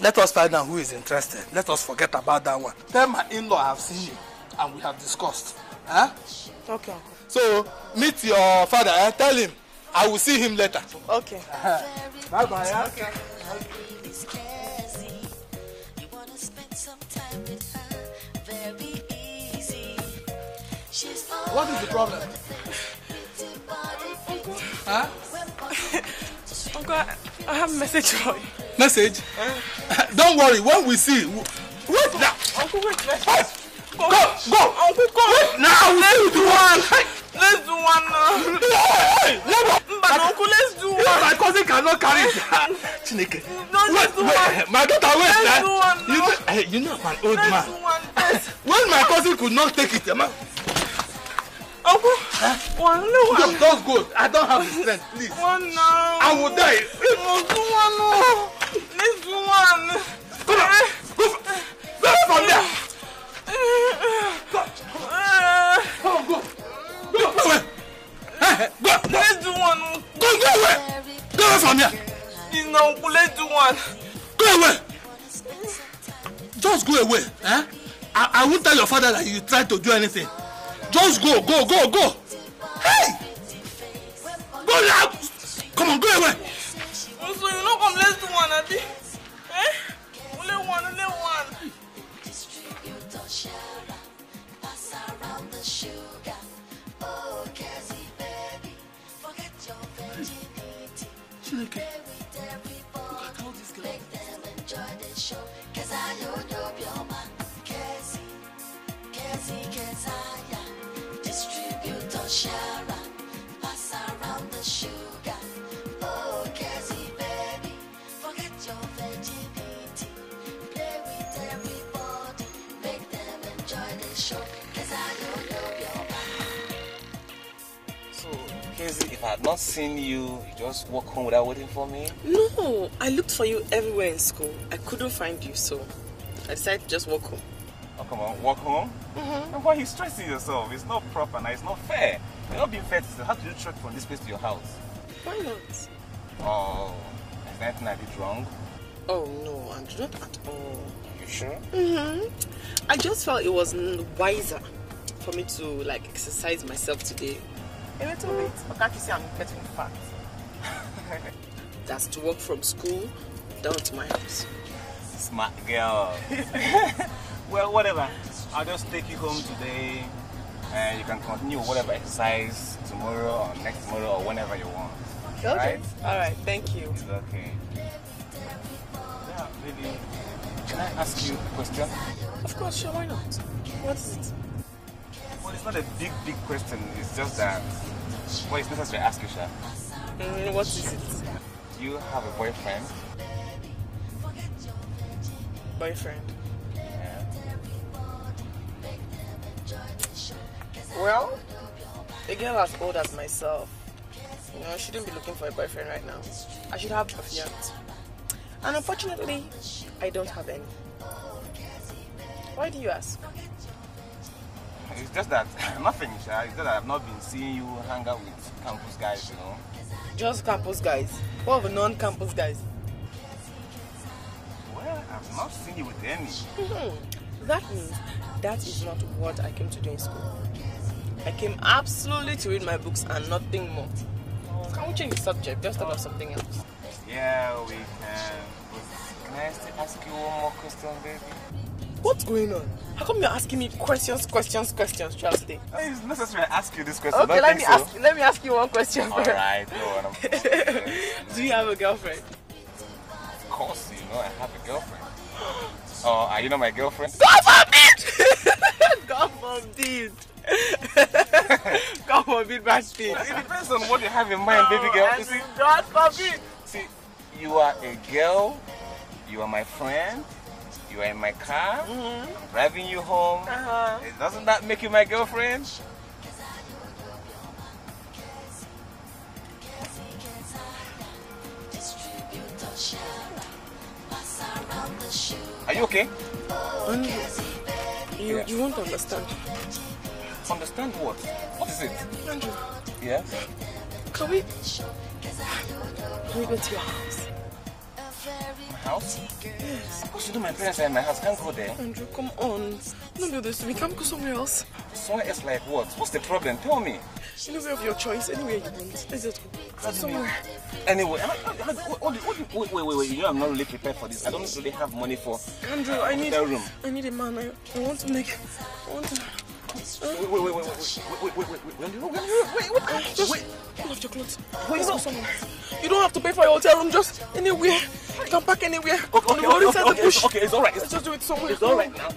Let us find out who is interested. Let us forget about that one. Tell my in-law I have seen you and we have discussed. Huh? Eh? Okay. Uncle. So meet your father. Eh? Tell him I will see him later. Okay. Uh Bye bye. Yeah? Okay. okay. What is the problem? Huh? Uncle, I have a message for you. Message? Uh, Don't worry, when we see. Wait now! Uncle, wait, let's wait. Go, go, go! Uncle, go! Wait now! Let's do one! Let's do one now! Hey, hey, but uncle, let's do one! My cousin cannot carry it! Chineke! No, let's do wait. one! My daughter, wait! Let's eh? do one now! You know, hey, you know I'm an old let's man. Do one, when my cousin could not take it, eh, man. Uncle, one no. Just, just go. I don't have the strength. Please. One no. I will die. Uncle, one no. This one. Come on. Go. Go from there. Eh, go. Go. Go. Go. Go away. Go. Let's do one. Go. Go away. Go away from here. You know, let's do one. Go away. Just go away. Eh? I, I won't tell your father that you tried to do anything. Just go, go, go, go. Hey! Go now! Come on, go away. so you know, come less us one, Abi. Eh? Only one, only one. look at all these girls. Make them enjoy the show, cause I know you're I had not seen you, you just walk home without waiting for me? No, I looked for you everywhere in school. I couldn't find you, so I decided to just walk home. Oh, come on, walk home? Mm-hmm. And why are you stressing yourself? It's not proper and it's not fair. You're not being fair to say, How do you trek from this place to your house? Why not? Oh, is there anything I did wrong? Oh, no, I not at all. you sure? Mm-hmm. I just felt it was wiser for me to, like, exercise myself today a little bit. But can't you see I'm getting fat? That's to walk from school down to my house. Smart girl. well, whatever. I'll just take you home today. And you can continue whatever exercise tomorrow or next tomorrow or whenever you want. Okay. All right? All right. Thank you. It's okay. Yeah, baby. Can I ask you a question? Of course, sure. Why not? What is it? it's not a big, big question. It's just that, well, it's necessary to ask you, Sha. Mm, what is it? Do you have a boyfriend? Boyfriend? Yeah. Well, a girl as old as myself, you know, I shouldn't be looking for a boyfriend right now. I should have a fiance. And unfortunately, I don't have any. Why do you ask? It's just that I'm not finished. It's just that I've not been seeing you hang out with campus guys, you know. Just campus guys. What of non-campus guys? Well, I've not seen you with any. Hmm. That means that is not what I came to do in school. I came absolutely to read my books and nothing more. Can we change the subject? Just about something else. Yeah, we can. can I ask you one more question, baby? What's going on? How come you're asking me questions, questions, questions Charles? today? It's necessary I ask you this question. Okay, let me so. ask. Let me ask you one question. All right, no, Do you have a girlfriend? Of course, you know I have a girlfriend. oh, are you not my girlfriend? God forbid! God forbid! God forbid, bad thing. It depends on what you have in mind, baby girl. God forbid. See, you are a girl. You are my friend you are in my car, mm -hmm. driving you home. Uh -huh. Doesn't that make you my girlfriend? Are you okay? Um, you, you won't understand. Understand what? What is it? Andrew. Yeah? Can we... Can we go to your house? house? Yes. Because you know my parents are in my house. Can't go there. Andrew, come on. Don't do this to me. can go somewhere else. Somewhere else like what? What's the problem? Tell me. Anywhere of your choice. Anywhere you want. Let's just go. Somewhere. Anyway, I, I, I, what, what, wait, wait, wait, You know I'm not really prepared for this. I don't really have money for Andrew, uh, I need room. I need a man. I, I want to make. I want to. Wait, wait, wait, wait, wait, wait, wait, wait, wait, wait, wait, wait, wait, just wait. Pull off your clothes. Wait, no. You don't have to pay for your hotel room, just anywhere. Don't park anywhere. Okay, okay, okay, okay, okay, okay, it's alright. Let's just do it somewhere. It's alright now.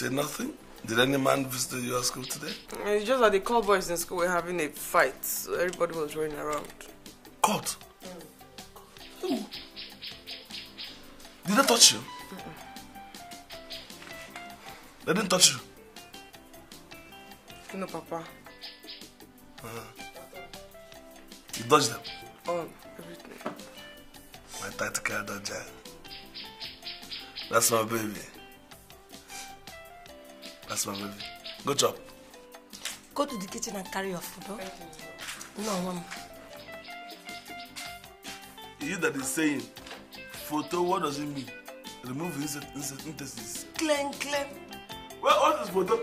say nothing? Did any man visit your school today? It's just that the call boys in school were having a fight, so everybody was running around. Caught? Mm. Did they touch you? Mm -mm. They didn't touch you? No, Papa. Uh, you dodged them? Oh, everything. My tactical dodger. That's my baby. That's my baby. Good job. Go to the kitchen and carry your food, huh? No, mom. You that is saying, photo, what does it mean? Remove the intestines. Clean, clean. Well, what is photo?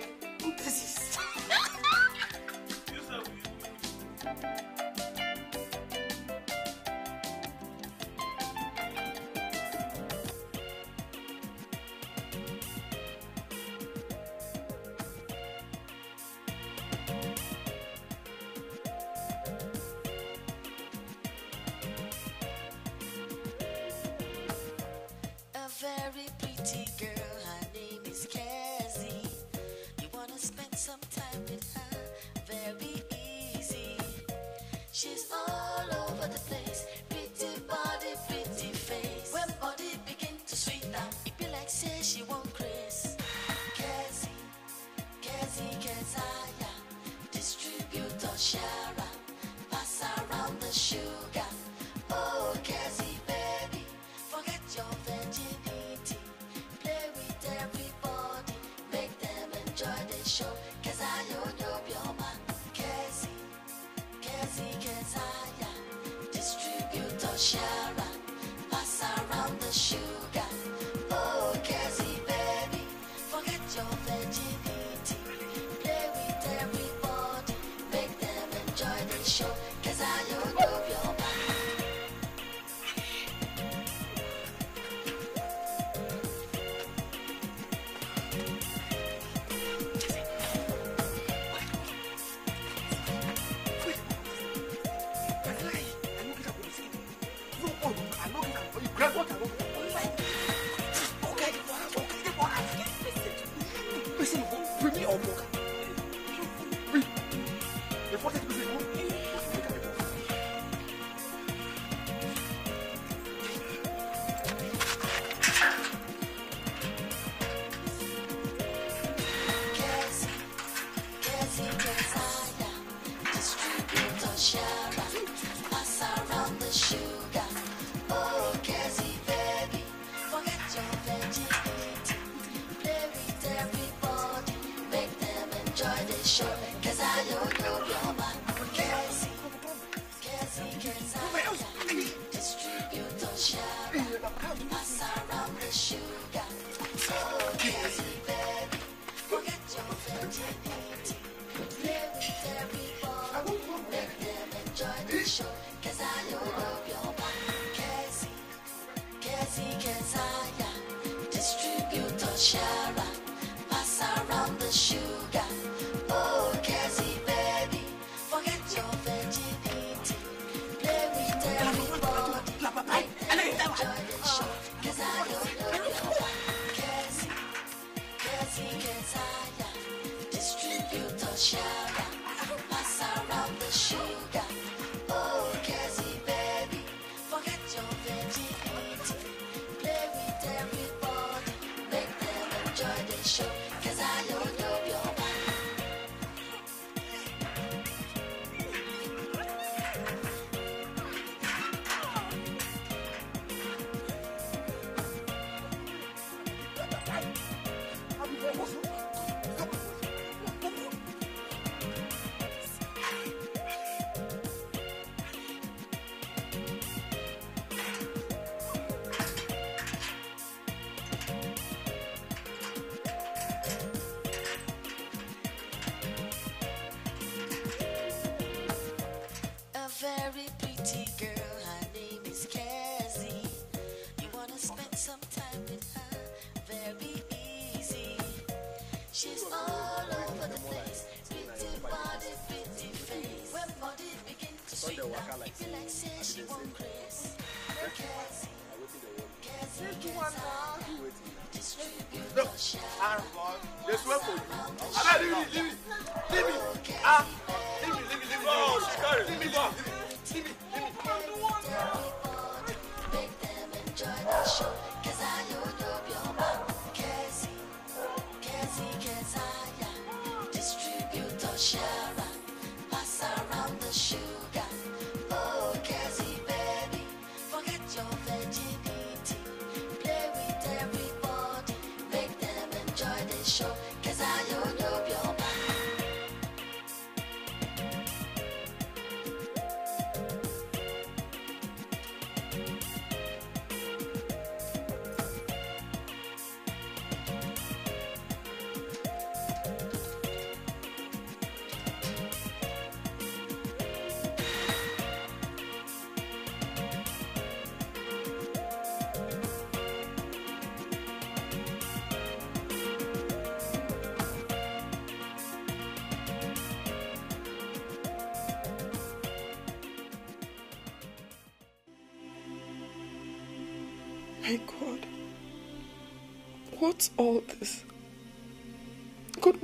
They swear for you. I don't even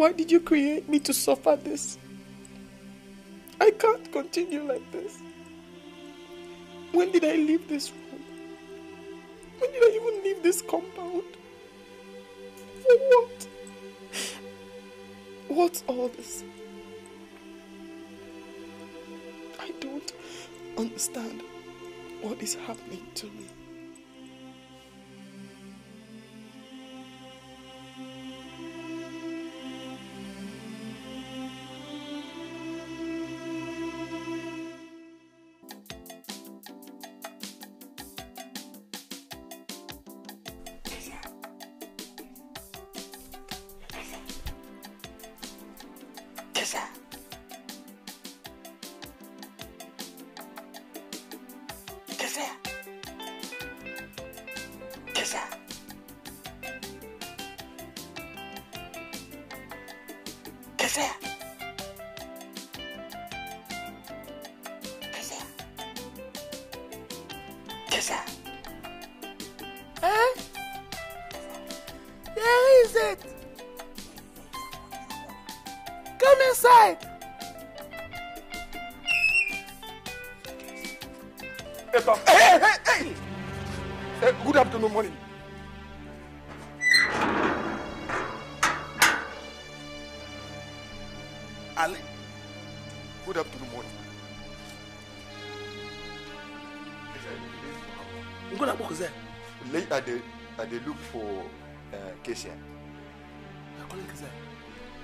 Why did you create me to suffer this? I can't continue like this. When did I leave this room? When did I even leave this compound? For what? What's all this? I don't understand what is happening to me.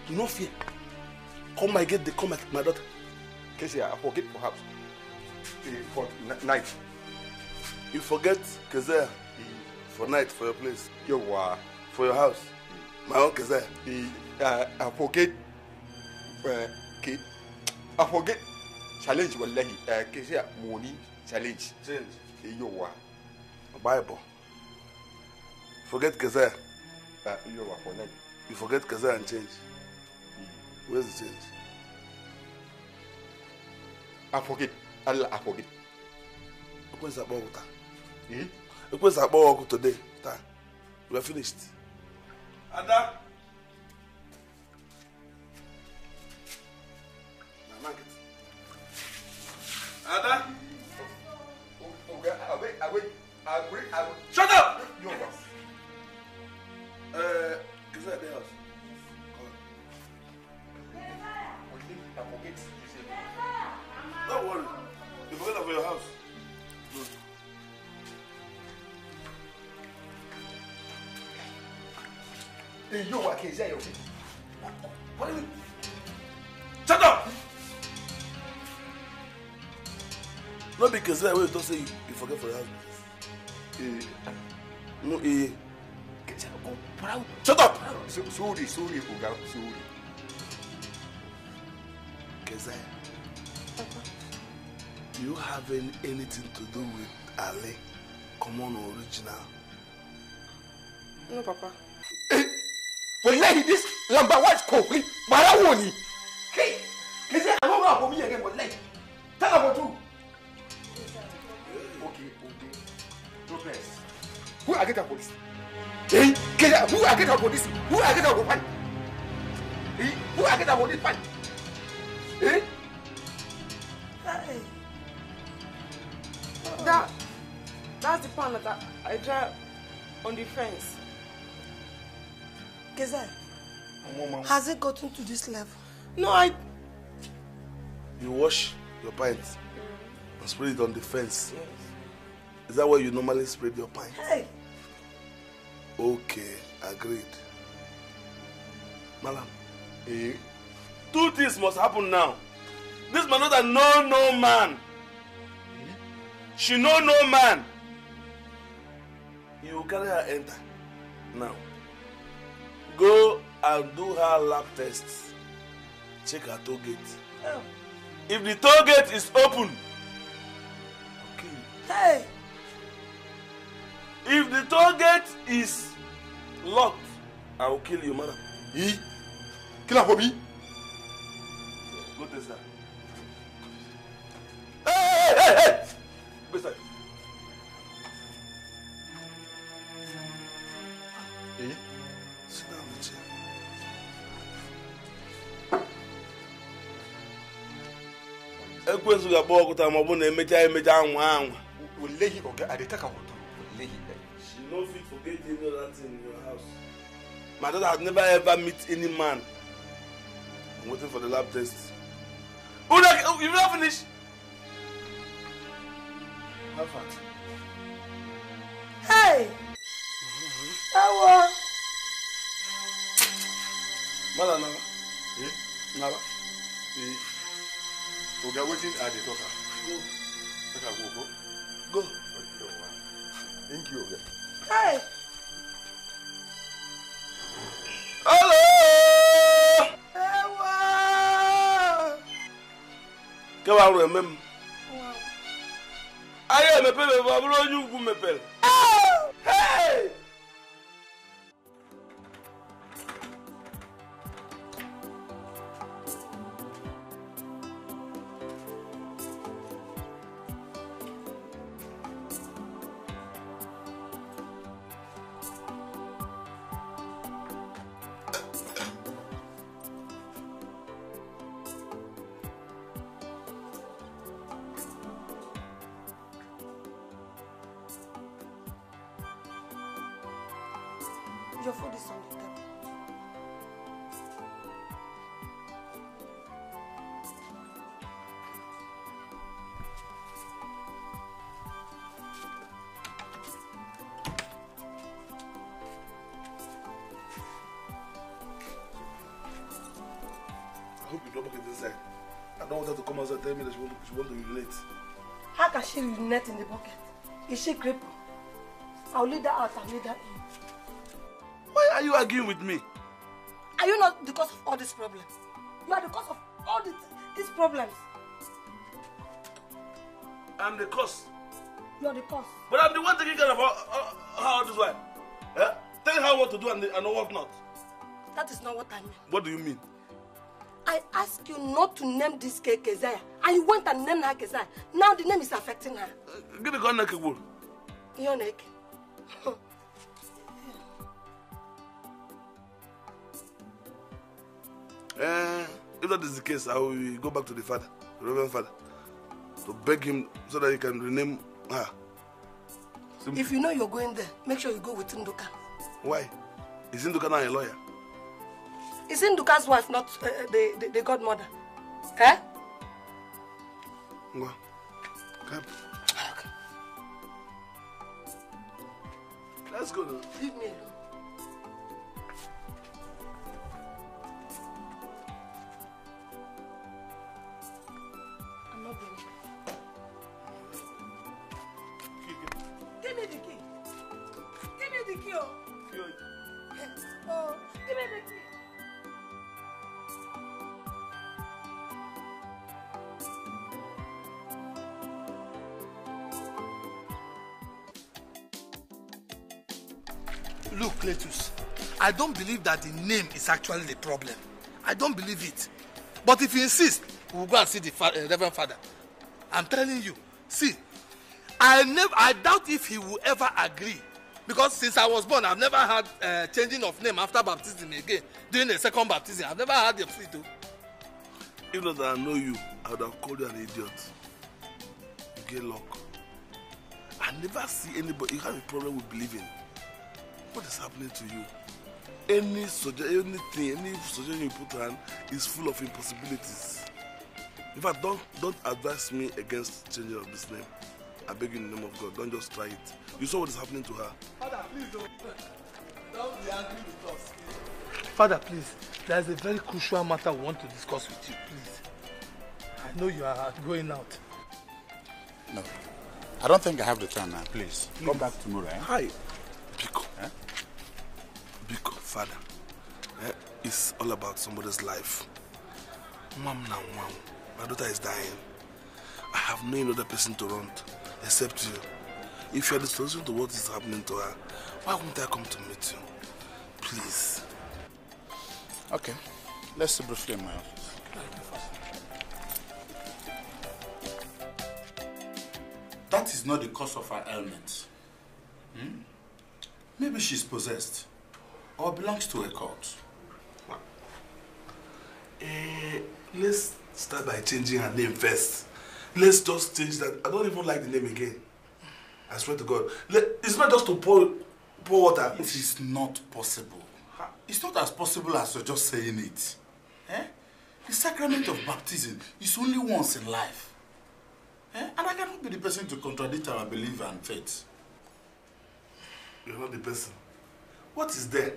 No fear. Come my gate, they come at my daughter. Casey, I forget perhaps. For night. You forget Kezer for night, for your place. Your wa. For your house. My own Kezer. Uh, I forget. Uh, I forget. Challenge wallahi. Uh, Casey, money challenge. Change. Your wa. Bible. Forget Kezer. You for night. You forget Kezer and change. Where's the change? Afọgide, Allah afọgide. Ekwesị akpọ ọkụ taa. Hmm? Ekwesị akpọ ọkụ today taa. We are finished. say you, you forget for your husband. Eh, no, eh. Shut up! sorry, sorry, Oga, sorry. Kezai, you have anything to do with Ali? Come on, original? No, Papa. Hey! Eh, Wallahi, this number white is Kofi. Barawoni! for this? Who will I get out for Eh? Who will I get out for this fight? Eh? Hey. That, that's the plan that I, I draw on the fence. Kezai, has it gotten to this level? No, I... You wash your pants and spray it on the fence. Yes. Is that where you normally spray your pants? Hey! Okay. Agreed. Malam. Eh? Two things must happen now. This man not know no man. Eh? She know no man. You carry her enter. Now. Go and do her lab test. Check her toe gate. Oh. If the toe gate is open, okay. Hey. If the toe gate is Locked. I will kill you, madam. He? Kill her for me? What Hey, hey, hey! Hey? agba eh? ọkụta ọ bụ na emecha emecha anwa anwa. Wole yi ọga adịta ka wụ no fit forget any other thing in your house. My daughter has never ever met any man. I'm waiting for the lab test. Una, oh, you not finished? How far? Hey! Awa! Mother Nava. Eh? Hmm? Nava. Eh? Oga, wetin I dey talk am? Go. Make I go go. Go. Thank you, Oga hello. ẹ wá. kí wàá rò ẹ mẹ́mu. ayé mẹ́pẹ́ mẹ́pẹ́ abúlé ojú kú mẹ́pẹ́. net in the bucket. Is she crippled? I'll lead her out, I'll lead her in. Why are you arguing with me? Are you not the cause of all these problems? You are the cause of all these, these problems. I'm the cause. You are the cause. But I'm the one taking care of how this life. Eh? Tell her what to do and, the, and what not. That is not what I mean. What do you mean? I ask you not to name this cake Keziah And you went and named her Kezai. Now the name is affecting her. Give me Gonnek Igbo. Your neck. Eh? if that is the case, I will go back to the father, the Reverend Father, to beg him so that he can rename her. Simply. If you know you're going there, make sure you go with Nduka. Why? Is Nduka not a lawyer? Is Nduka's wife not uh, uh the, the, the godmother? Eh? Ngwa. Come. Ah, Let's go Leave me alone. believe that the name is actually the problem. I don't believe it. But if you insist, we will go and see the fa uh, Reverend Father. I'm telling you. See, I never, I doubt if he will ever agree. Because since I was born, I've never had uh, changing of name after baptism again. During the second baptism, I've never had the free to. If not that I know you, I would have called you an idiot. You get luck. I never see anybody. You have a problem with believing. What is happening to you? any suggestion, anything, any suggestion you put on is full of impossibilities. In fact, don't, don't advise me against changing of this name. I beg you in the name of God, don't just try it. You saw what is happening to her. Father, please don't, don't be angry with us. Father, please, there is a very crucial matter we want to discuss with you, please. I know you are going out. No. I don't think I have the time now, please. please. Come back tomorrow, eh? Hi. father. Eh? It's all about somebody's life. Mom now, mom. My daughter is dying. I have no other person to run to except you. If you are the solution to what is happening to her, why won't I come to meet you? Please. Okay. Let's see briefly in my office. That is not the cause of her ailment. Hmm? Maybe she's possessed. or belongs to a cult. Well, eh, let's start by changing her name first. Let's just change that. I don't even like the name again. I swear to God. Let, it's not just to pour, pour water. It is not possible. It's not as possible as you're just saying it. Eh? The sacrament of baptism is only once in life. Eh? And I cannot be the person to contradict our belief and faith. You're not the person. What is there?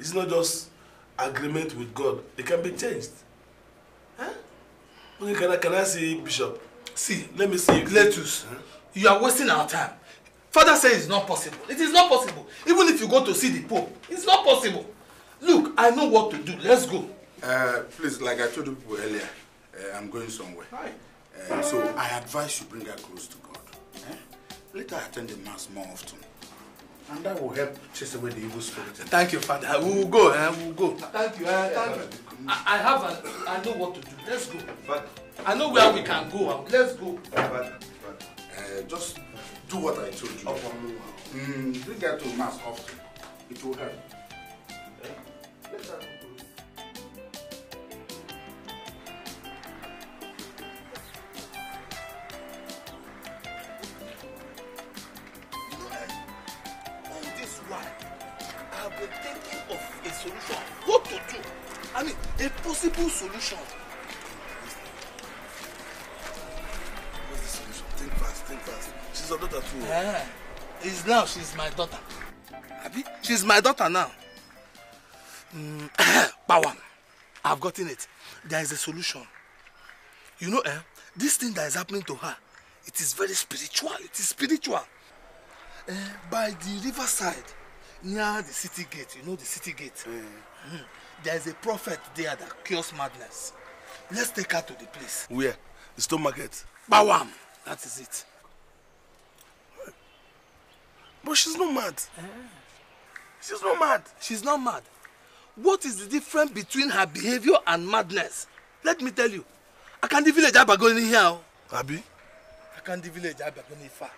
It's not just agreement with God. It can be changed. Huh? Eh? Okay, can I, can I see Bishop? See, let me see. Letus, huh? Eh? you are wasting our time. Father says it's not possible. It is not possible. Even if you go to see the Pope, it's not possible. Look, I know what to do. Let's go. Uh, please, like I told you people earlier, uh, I'm going somewhere. Right. Uh, so I advise you bring her close to God. Eh? Let her attend the mass more often. And that will help chase away the evil spirit. Thank you, Father. We will go. Eh? We will go. Thank you. Uh, thank you. I, I have. An, I know what to do. Let's go. But I know where we can go. Let's go. But, but uh, just do what I told you. Upon mm, bring that to mass often. It will help. Yeah. Let's go. possible solution. What's the solution? Think fast, think fast. She's your daughter too. Yeah. It's now she's my daughter. Abi? She's my daughter now. Mm, power. I've gotten it. There is a solution. You know, eh? This thing that is happening to her, it is very spiritual. It is spiritual. Eh, by the riverside, near the city gate, you know the city gate. Mm. Mm there is a prophet there that cures madness. Let's take her to the place. Where? The stone market. Bawam! That is it. But she's not mad. Eh? She's not mad. She's not mad. What is the difference between her behavior and madness? Let me tell you. I can't the village Abagoni here. Oh. Abi? I can't the village Abagoni far.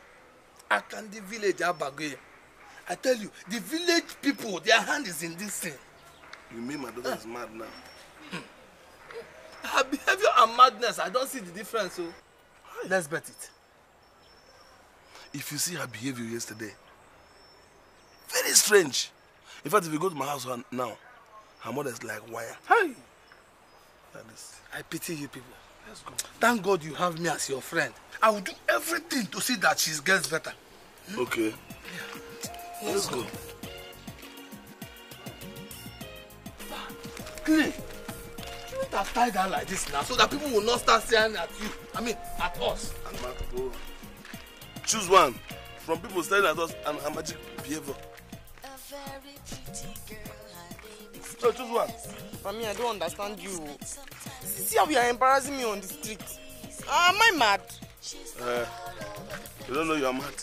I can't the village Abagoni. I tell you, the village people, their hand is in this thing. You mean my daughter is mad now? Her behavior and madness, I don't see the difference. So oh. let's bet it. If you see her behavior yesterday, very strange. In fact, if you go to my house now, her mother is like wire. Hey, That is. I pity you people. Let's go. Thank God you have me as your friend. I will do everything to see that she gets better. Okay. Yeah. Let's, Let's go. go. clean. You not have tied her like this now so that people will not start staring at you. I mean, at us. Amado. Choose one from people staring at us and her magic behavior. A very pretty girl, so choose one. For me, I don't understand you. See how you are embarrassing me on the street. Uh, am I mad? Uh, you don't know you are mad.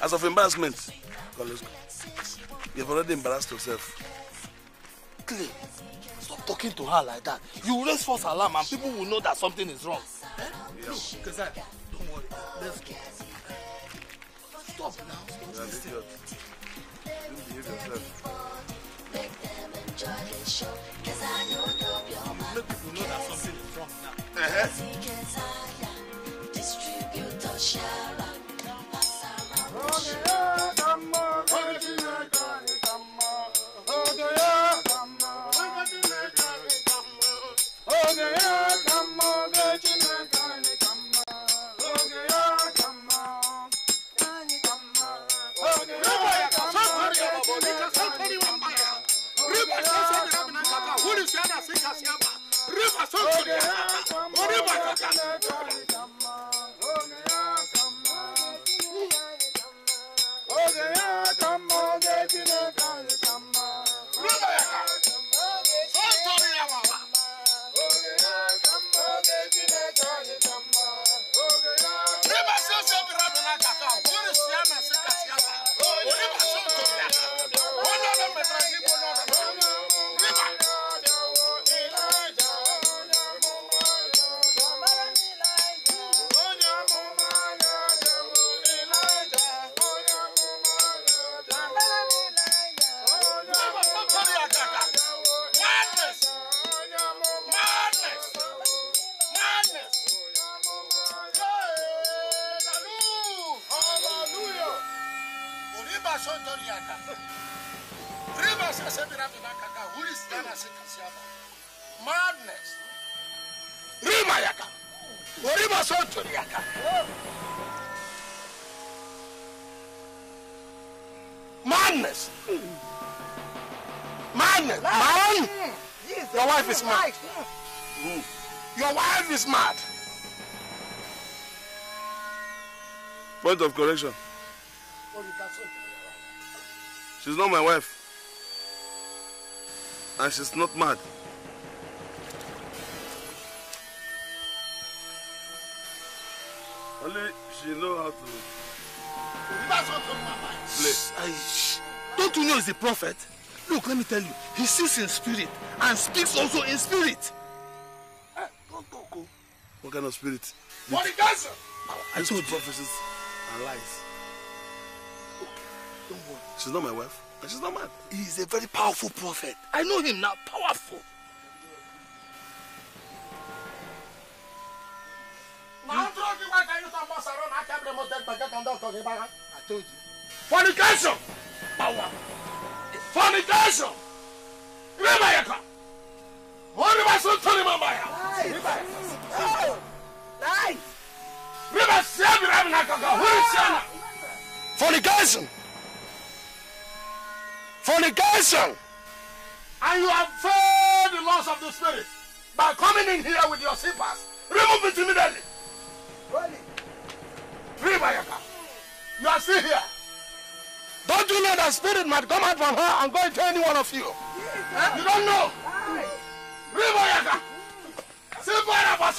As of embarrassment, let's go. You've already embarrassed yourself. Clay, stop talking to her like that. You raise false alarm and people will know that something is wrong. Eh? Yeah. Look, Kazai, don't worry. Let's go. Stop now. yeah, Let people know that something is wrong now. Uh-huh. of correction. She's not my wife. And she's not mad. Only she knows how to play. Don't you know he's a prophet? Look, let me tell you, he sees in spirit and speaks also in spirit. Eh, oh. What kind of spirit? he does. I told you. and lies. Don't worry. She's not my wife, and she's not mine. He is a very powerful prophet. I know him now, powerful. I told you. Fornication! Power! Fornication! Remember, Yaka! What am I so telling my mind? Fornication. Fornication. And you have failed the laws of the spirit by coming in here with your slippers. Remove it immediately. Ribayaka. You are still here. Don't you know that spirit might come out from her and go into any one of you? Yes. You don't know. Ribayaka. Sipara for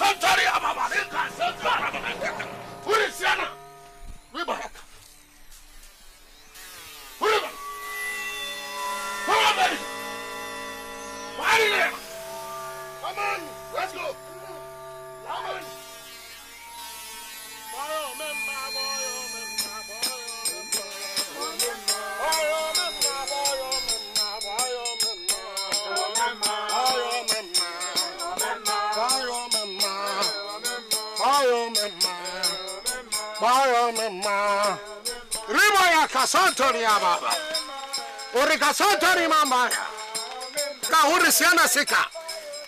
santo ni aba uri ka santo ni mama ka uri siana sika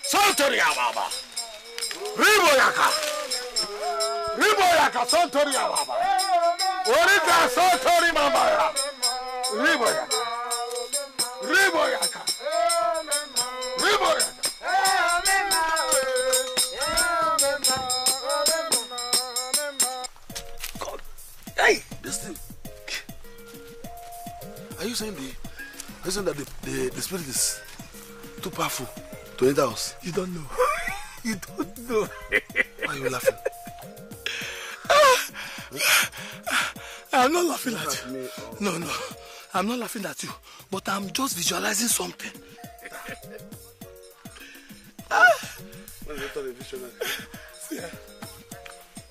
santoni ya baba ribo yaka ribo yaka santoni ya baba uri ka santo ni mama ribo yaka ribo yaka Reason the, reason that the, the, the spirit is too powerful to enter us? You don't know. you don't know. Why are you laughing? Ah, ah, I'm not laughing at, you. Or... Oh. No, no. I'm not laughing at you. But I'm just visualizing something. ah.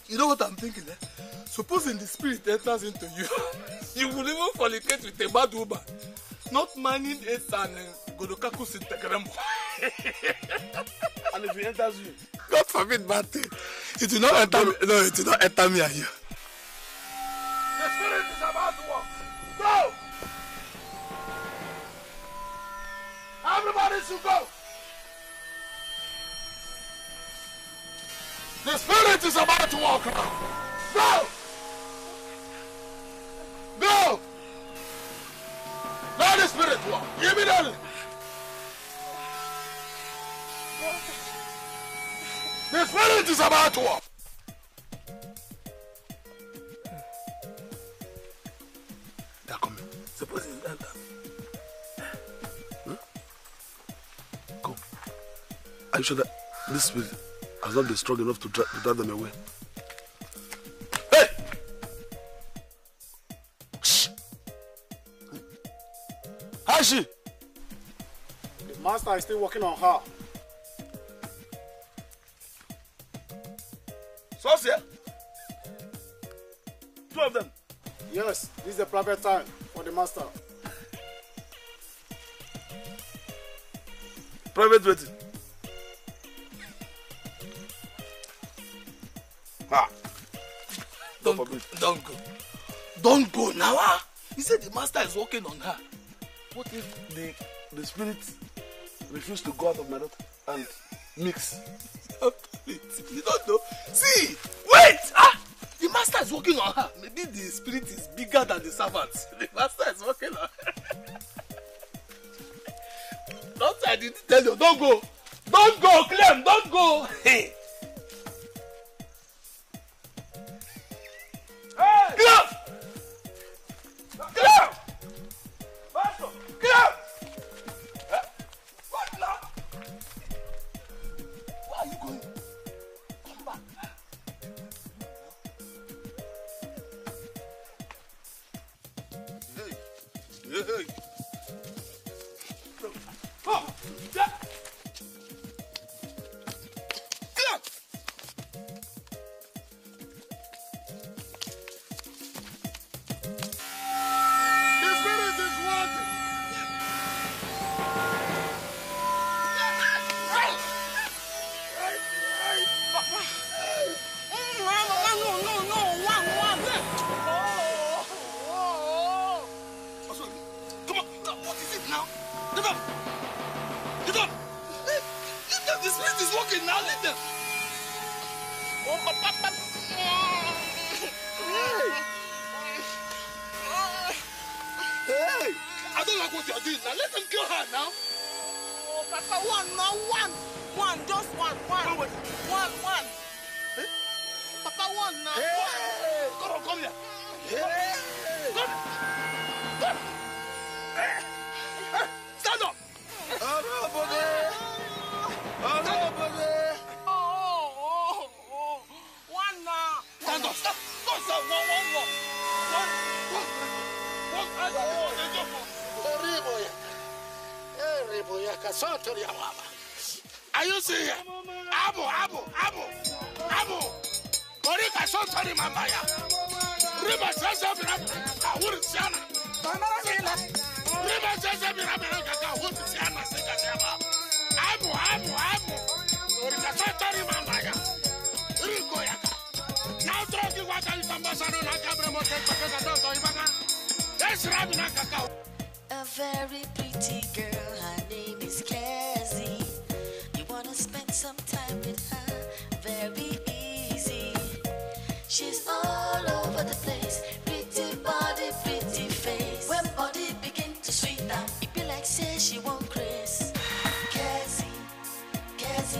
You know what I'm thinking, eh? Supposing the spirit enters into you, you will even fornicate with a bad woman, not mining it and uh, in and if it enters you, God forbid bad thing. It will not enter me. No, it will not enter me you. The spirit is about to walk. Go! Everybody should go! The spirit is about to walk Go! waaw yéen daal. mais fële ci sabaatu wa. d'accord c'est possible d'entendre. Are you sure that this spirit has not been strong enough to drive them away? she? The master is still working on her. So, sir? Two of them? Yes, this is the private time for the master. Private waiting. Ah. Don't, go. Don't go. Don't go now. Ah. He said the master is working on her. What if the, the spirit refused to go out of my daughter and mix? you don't know. See, wait! Ah! The master is working on her. Maybe the spirit is bigger than the servants. The master is working on her. Don't I didn't tell you, don't go. Don't go, Clem, don't go. Hey. Oh,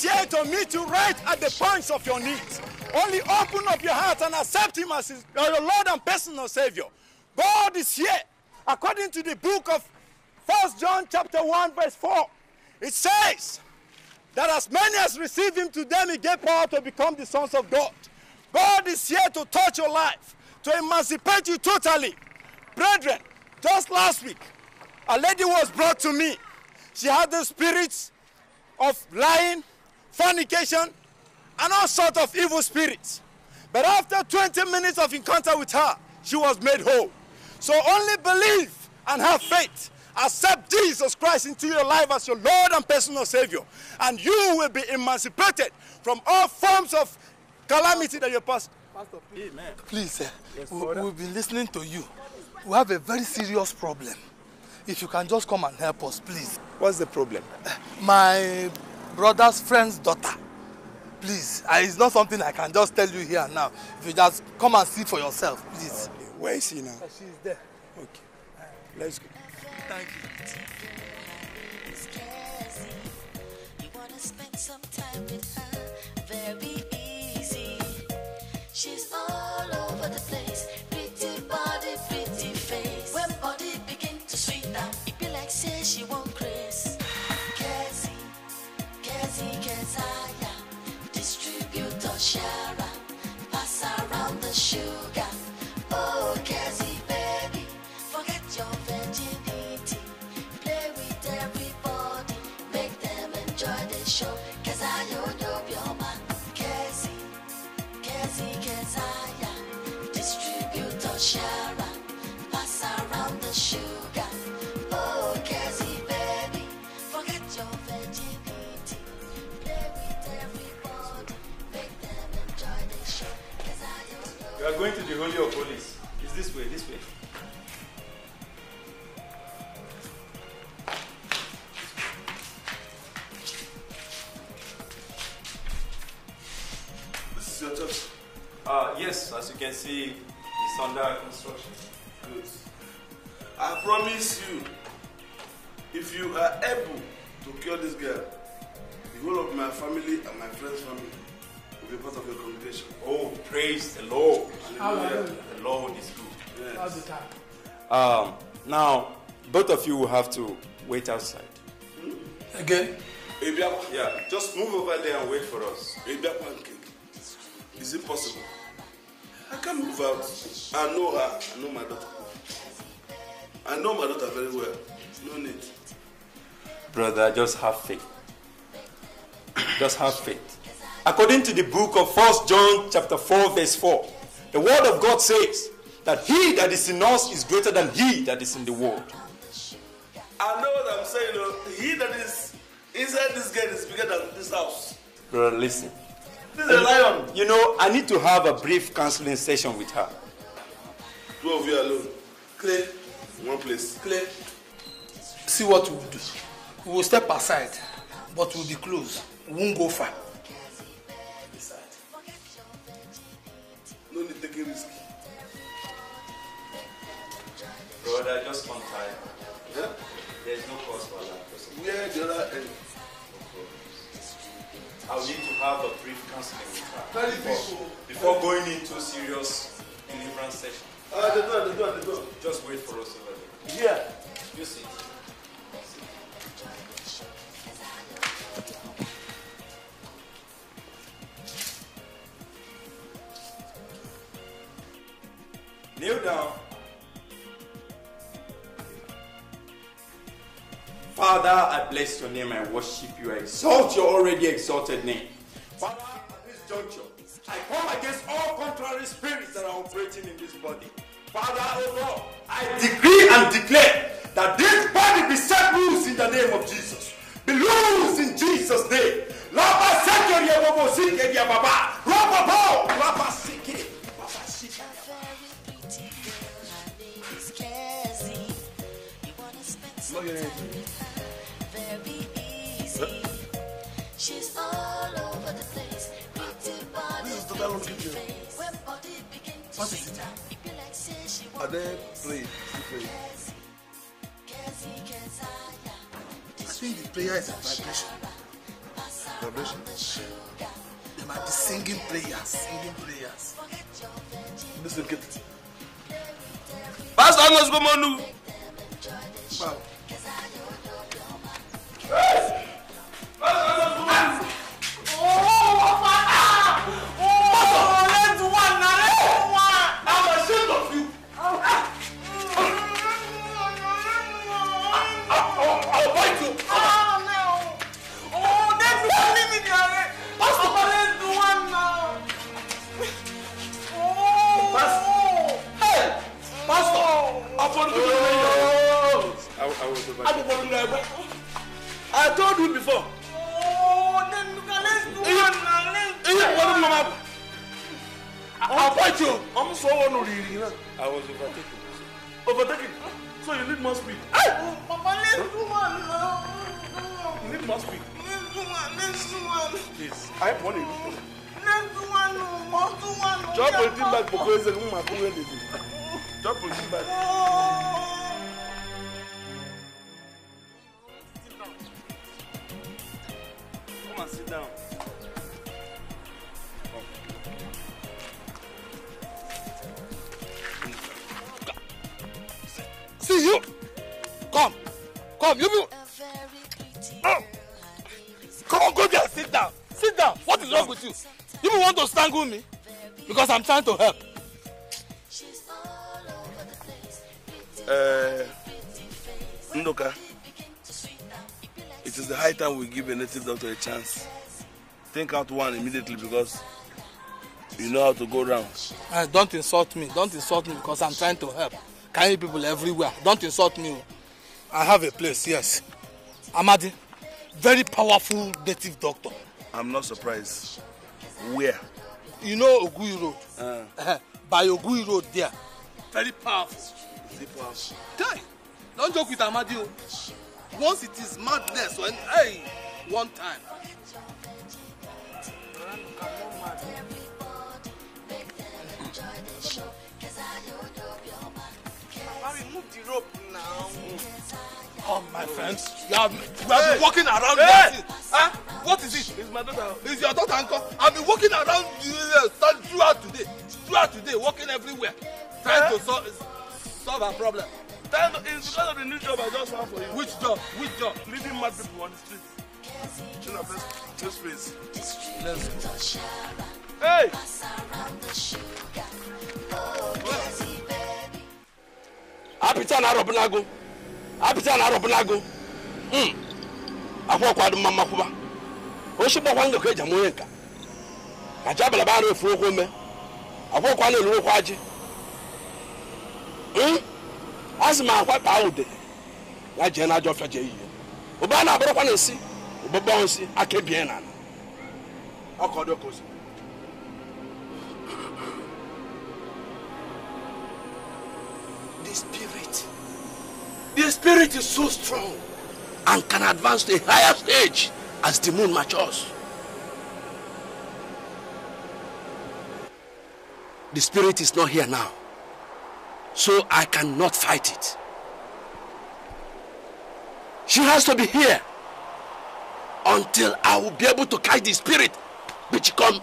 here to meet you right at the points of your needs. Only open up your heart and accept Him as uh, your Lord and personal Savior. God is here. According to the book of First John chapter 1 verse 4, it says, that as many as receive him to them he gave power to become the sons of God. God is here to touch your life, to emancipate you totally. Brethren, just last week, a lady was brought to me. She had the spirits of lying, fornication, and all sorts of evil spirits. But after 20 minutes of encounter with her, she was made whole. So only believe and have faith Accept Jesus Christ into your life as your Lord and personal Savior, and you will be emancipated from all forms of calamity that you pass. Pastor, please, Amen. please uh, yes, we, we've be listening to you. We have a very serious problem. If you can just come and help us, please. What's the problem? my brother's friend's daughter. Please, it's not something I can just tell you here now. If you just come and see for yourself, please. Where is she now? Uh, she's there. Okay. Let's go. Thank you. She's all over the place. Pretty body, pretty face. When body begin to sweet down, it be like say she won't grace. Kezi, Kezi, Kezaya, distributor, can see it's under construction. Good. I promise you, if you are able to cure this girl, the whole of my family and my friend's family will be part of your congregation. Oh, praise the Lord. Hallelujah. The Lord is good. Yes. Um, now, both of you will have to wait outside. Hmm? Again? Yeah, just move over there and wait for us. Is it possible? I can't move out. I know her. I know my daughter. I know my daughter very well. No need. Brother, just have faith. Just have faith. According to the book of First John chapter 4, verse 4, the word of God says that he that is in us is greater than he that is in the world. I know what I'm saying. You know, he that is inside this gate is bigger than this house. Brother, listen. You know, I need to have a brief counseling session with her. Two of you alone. Clear. One place. Clear. See what we will do. We will step aside, but we'll be close. We won't go far. No need taking risk. Brother, just one time. Yeah? There's no cause for that. Yeah, the other end? I'll need to have a brief counseling with her before, before going into serious deliverance session. Uh, the door, the door, the door. Just wait for us over there. Yeah. You see. Kneel down Father, I bless your name. I worship you. I exalt your already exalted name. Father, at this juncture, I come against all contrary spirits that are operating in this body. Father, oh Lord, I decree and declare that this body be set loose in the name of Jesus. Be loose in Jesus' name. Lapa Lapa Lapa Look at it. What is it? Are they play? Pray. Actually, the prayer is a vibration. Vibration? They might be singing prayers, singing prayers. This will get it. Pastor Amos Gomonu! Wow. Yes! Pastor Amos me, Gary. Pastor Perez, do one now. Oh. Pastor. Hey, Pastor. I found you. I was over. I was over. I told you before. Oh, then let's do one now. Let's do one now. I'll fight you. I'm so honored. I was overtaken. Overtaken? So you need more speed. Hey! Oh, Papa, let's do one now. You need more speed. Drop politique bag pour que c'est nous ma pour aider. Drop the bag. Come and sit down. See you. Come. Come, you. Oh. Come on, go there. Sit down. Sit down. What is wrong with you? You want to strangle me? Because I'm trying to help. Uh, Ndoka, it is the high time we give a native doctor a chance. Think out one immediately because you know how to go round. Uh, don't insult me. Don't insult me because I'm trying to help. Kind people everywhere. Don't insult me. I have a place, yes. Amadi, very powerful native doctor. i'm not surprised where. you know ogui road. Uh. Uh-huh. by ogui road there very powerful. very powerful. guy don't joke with amadi o once it is madness when hey one time. Mami, move the rope now. Mm. Come, oh, my friends. You have, been walking around hey. Ah! Huh? What is it? It's my daughter. It's your daughter, uncle. I've been walking around uh, throughout today. Throughout today, walking everywhere. Trying to solve, solve her problem. it's because of the new job I just found for you. Which job? Which job? Leaving mad people on the street. Chin up eh? this face. Let's go. Hey! Apita na Nago. apịta na arụbụlago hmm. akwụkwọ ọkwado mma mmakwụba ochi gbakwa ndụ ka eji ama onye nka kacha abalaba arụ efu okwu ome akwụkwọ ọkwa na-elu okwu ajị hmm. a sị m akwa kpaa ude ya jee na ajọ ọfịa jee ihe ụba a na-abụrụkwa na esi ụgbọgbọ nsị aka ebie na ala ọkọdụ ka ozi The spirit is so strong and can advance to a higher stage as the moon matures. The spirit is not here now, so I cannot fight it. She has to be here until I will be able to catch the spirit which come.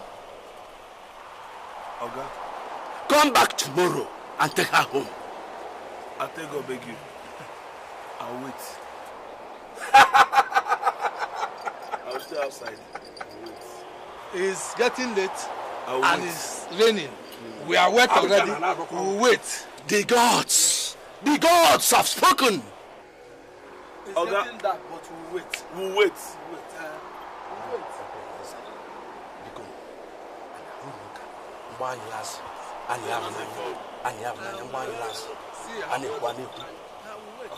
Oga? Come back tomorrow and take her home. I'll I'll beg you. I'll wait. I'll stay outside. I'll wait. It's getting late I'll and wait. it's raining. Mm. We are wet I'll already. We'll wait. The gods, the gods have spoken. It's oh, getting that... dark, but we'll wait. We'll wait. We'll wait. Uh, we'll wait.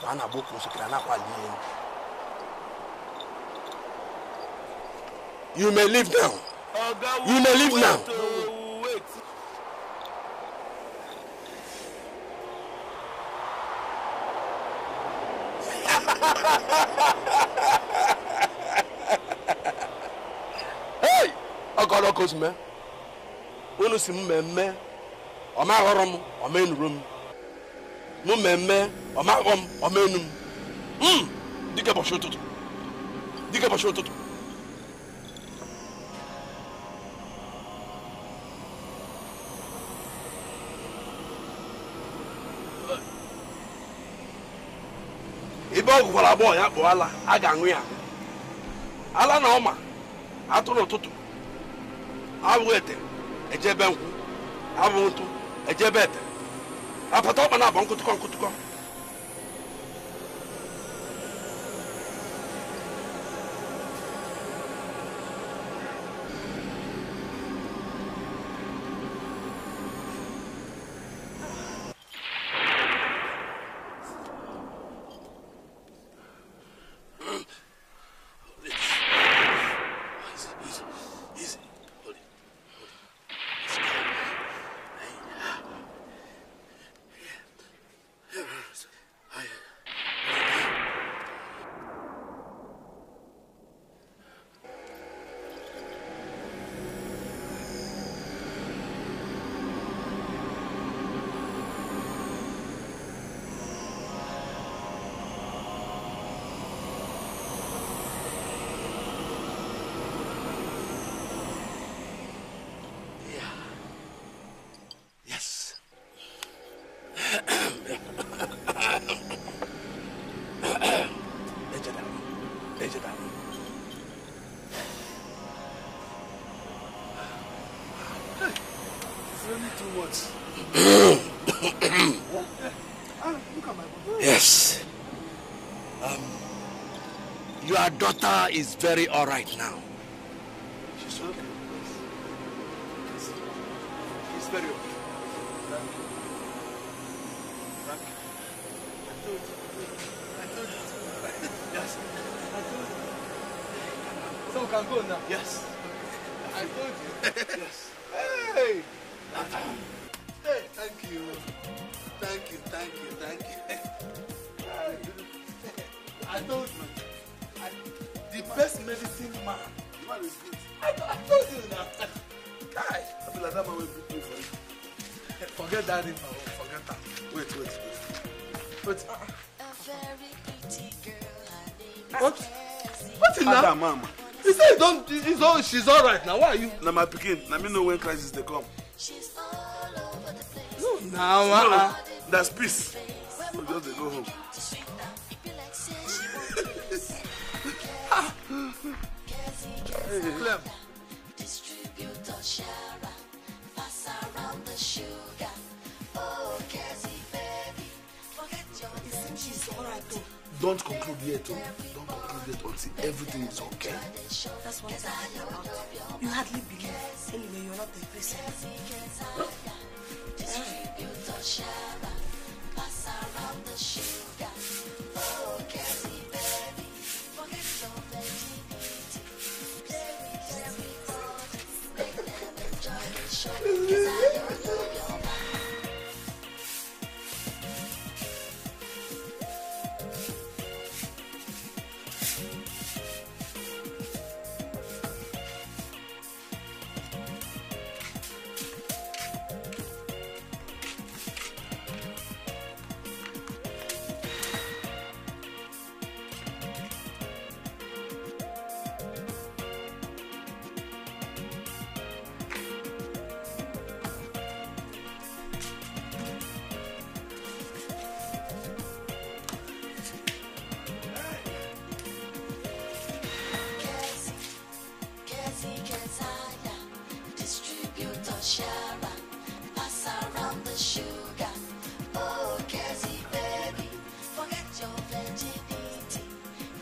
akwa a na-agba oke osikiri a na-akwali elu you may leave now you may leave now. hey ọkọlọkọ ozime unu si mmemme ọ maghọrọ m ọ ma m m mmemme ọmaghọ m ọma m dịka ụbọchị ụtụtụ dịka ụbọchị ụtụtụ ebe ọ gụkwara agbọghọ ya kpụọ ala a ga-aṅụ ya ala na ọma atụrụ ụtụtụ abụghị ete ejebe nkwụ abụghị ntụ ejebe ete apata ọkpa na-abọ nkụtụkọ nkụtụkọ is very alright now. Now why are you? Now my picking. Now me know when crisis they come. No, now nah, uh-uh. no, that's peace. So just they go home. Clem. Distributor sharing. Don't conclude yet. Oh. Don't conclude yet until everything is okay. That's what I'm about. You hardly believe. Anyway, you're not the person. Huh? Yeah. Sharon, pass around the sugar. Oh, Cassie, baby, forget your virginity.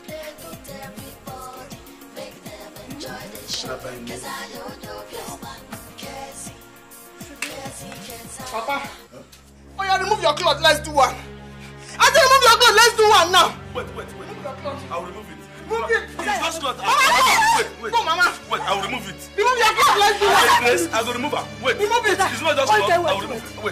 Play with everybody, make them enjoy the show. Cause I don't know your man, Cassie. Cassie, Cassie. Papa, huh? oh yeah, remove your clothes, let's do one. I said remove your clothes, let's do one now. Yes, I will remove her. Wait. Remove it. not just okay, wait, I Wait.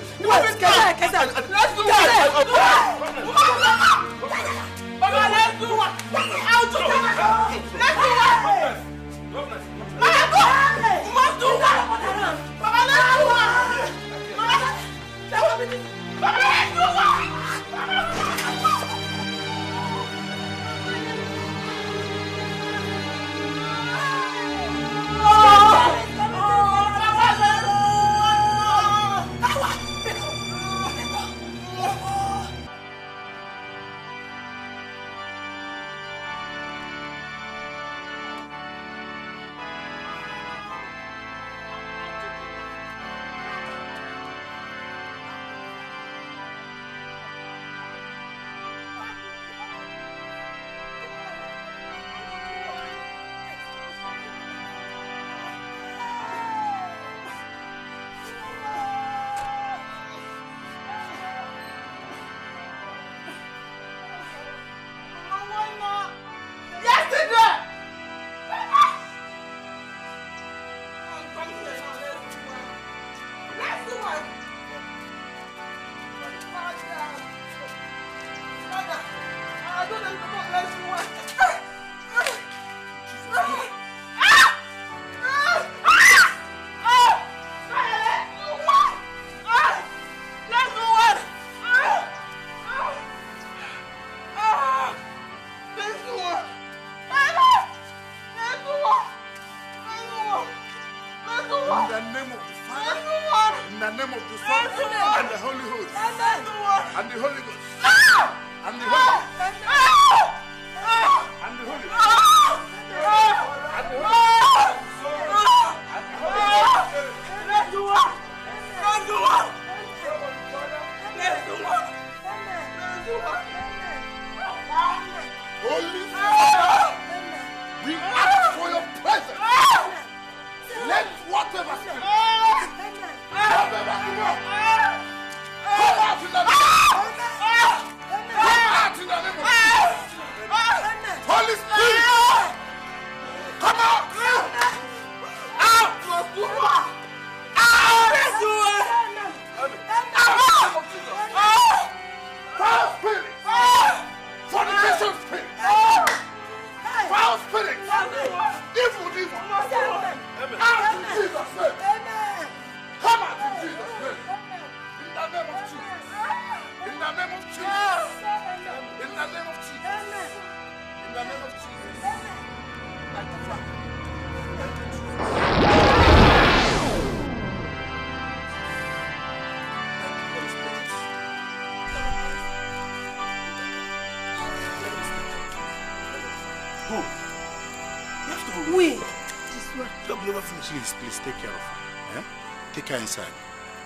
Get inside.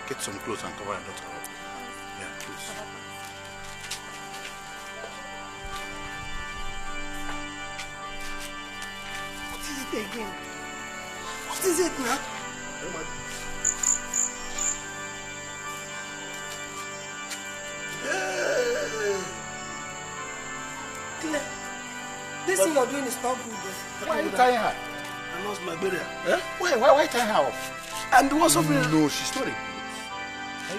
Get some clothes and cover your daughter up. Yeah, please. What is it again? What is it now? Claire, this thing you're doing is not good. Why are you tying her? I lost my burial. Huh? Why, why, why tying her off? And what's up No, she's not a ghost. you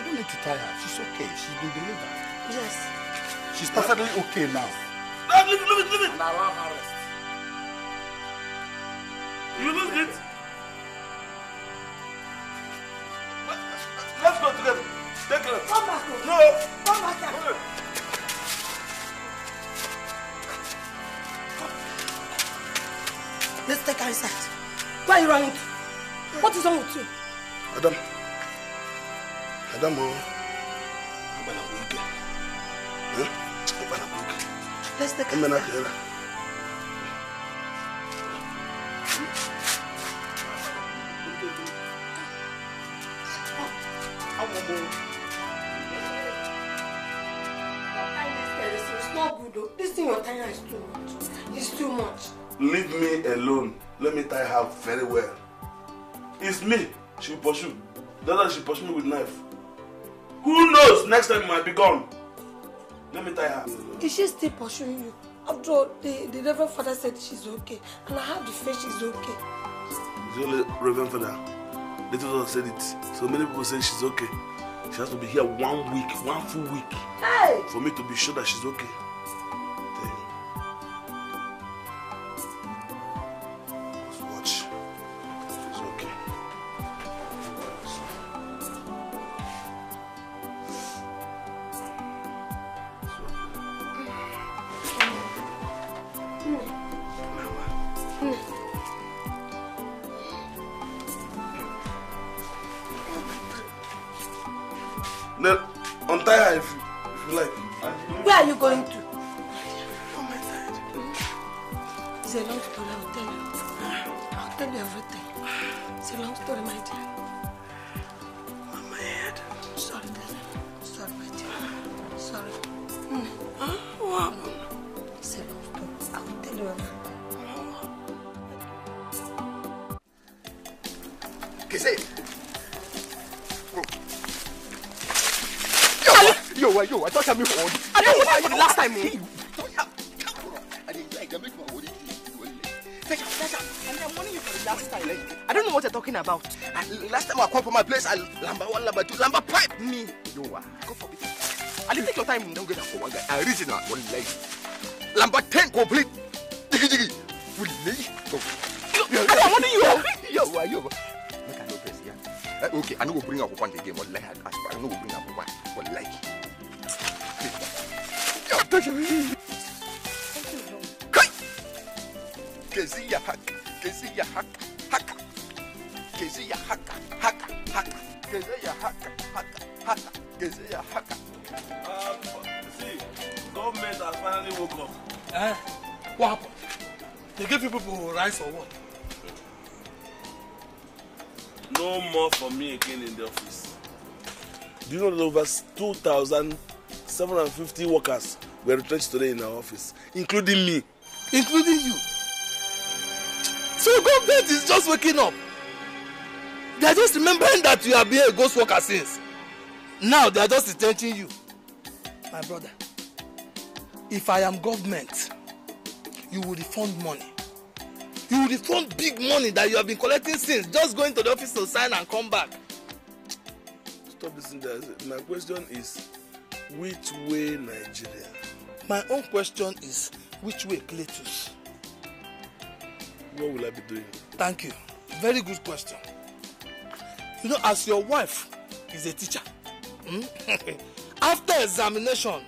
don't need to tie her. She's okay. She's been delivered. Yes. She's perfectly okay now. No, leave it, leave it, leave it. And allow her rest. You lose it. Let's go together. Take her. Come back No. Come back here. Let's take her inside. Why are you running What is wrong with you? dama agbala burúkẹ agbala burúkẹ ẹmẹ náà kẹrẹ. This thing you're tying is too much. It's too much. Leave me alone. Let me tie her very well. It's me. She will pursue. The other she pursue me with knife. Who knows? Next time you might be gone. Let me tie her. Is she still pursuing you? After all, the, the Reverend Father said she's okay. And I have the faith she's okay. The only Reverend Father. Little daughter said it. So many people say she's okay. She has to be here one week, one full week. Hey! For me to be sure that she's okay. Seven fifty workers were retrenched today in our office, including me. Including you? So government is just waking up. They are just remembering that you have been a ghost worker since. Now they are just retrenching you. My brother, if I am government, you will refund money. You will refund big money that you have been collecting since, just going to the office to sign and come back. Stop this. My question is which way Nigeria? My own question is which way Cletus? What will I be doing? Thank you. Very good question. You know, as your wife is a teacher, hmm? after examination,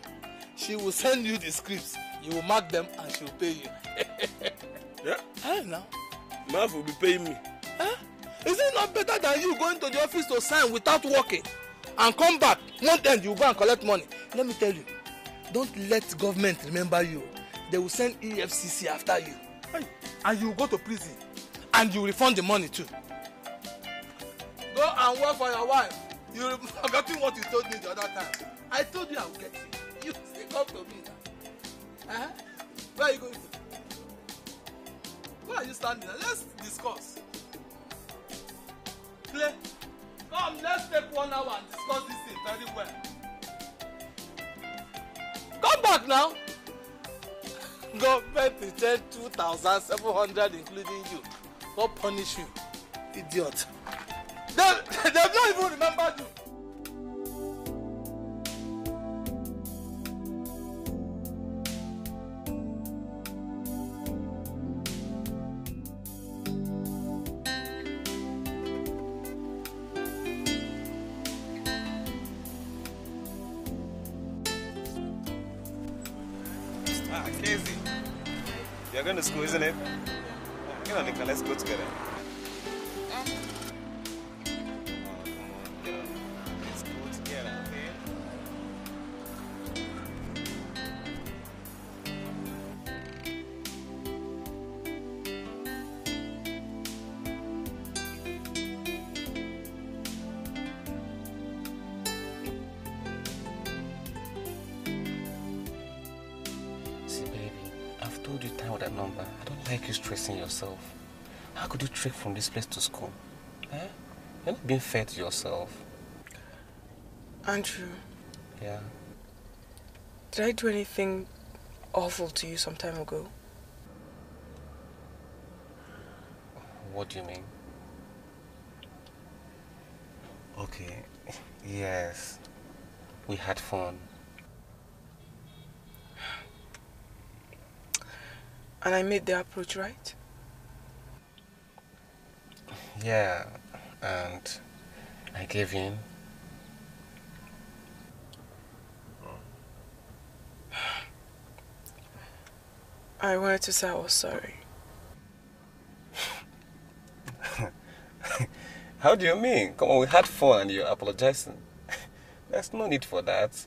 she will send you the scripts. You will mark them and she will pay you. yeah? I don't know. My will be paying me. Huh? Is it not better than you going to the office to sign without working and come back? One end you go and collect money let me tell you don't let government remember you they will send efcc after you and you go to prison and you refund the money too go and work for your wife you forgetting what you told me the other time i told you i will get you you still come to me now eh? where you going where are you standing let's discuss play come let's take one hour and discuss this thing very well. Come back now. Government two thousand seven hundred, including you. God punish you, idiot. They, they've not even remember you. school, isn't it? Come on, Nikka. let's go together. Place to school. Eh? You're not being fair to yourself. Andrew. Yeah? Did I do anything awful to you some time ago? What do you mean? Okay, yes. We had fun. And I made the approach right? Yeah, and I gave in. I wanted to say I was sorry. How do you mean? Come on, we had fun and you're apologizing. There's no need for that.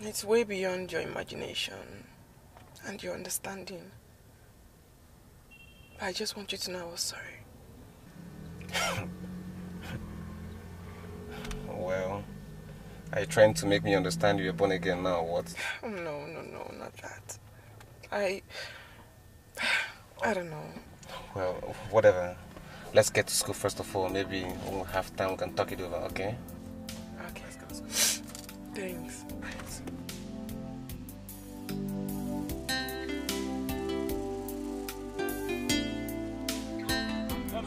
It's way beyond your imagination and your understanding. But I just want you to know I was sorry. well, are you trying to make me understand you're born again now, what? No, no, no, not that. I... I don't know. Well, whatever. Let's get to school first of all. Maybe when we have time, we can talk it over, okay? Okay. Thanks.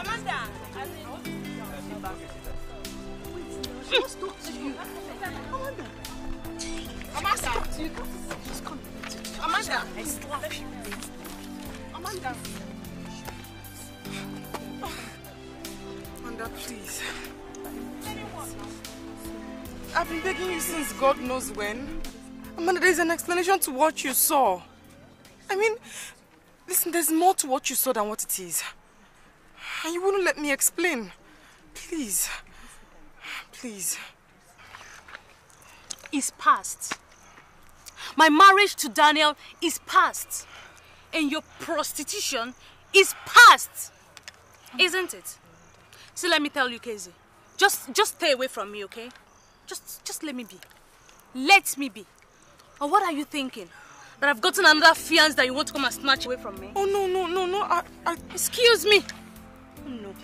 Amanda, I mean, just talk to you. Amanda. Amanda. Amanda. Amanda. Amanda, please. I've been begging you since God knows when. Amanda, there's an explanation to what you saw. I mean, listen, there's more to what you saw than what it is. You wouldn't let me explain. Please. Please. It's past. My marriage to Daniel is past. And your prostitution is past. Isn't it? So let me tell you, Casey. Just, just stay away from me, okay? Just, just let me be. Let me be. Or what are you thinking? That I've gotten another fiance that you want to come and snatch away from me? Oh, no, no, no, no. I, I... Excuse me. No.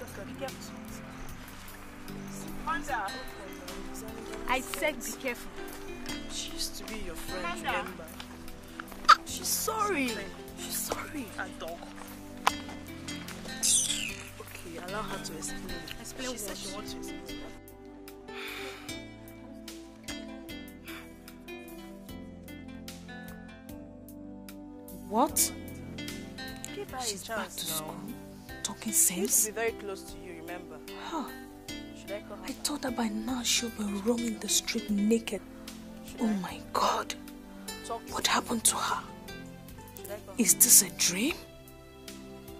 I said be careful. She used to be your friend, Amanda. remember? She's sorry. She's sorry. A dog. Okay, allow her to explain. Explain she said she wants to explain. What? Give her She's a chance back to now. school talking sense. She used to be very close to you, remember? Huh. Should I call her? I thought that by now she'll be roaming the street naked. Should oh I? my God. Talk what happened to her? Is this a dream?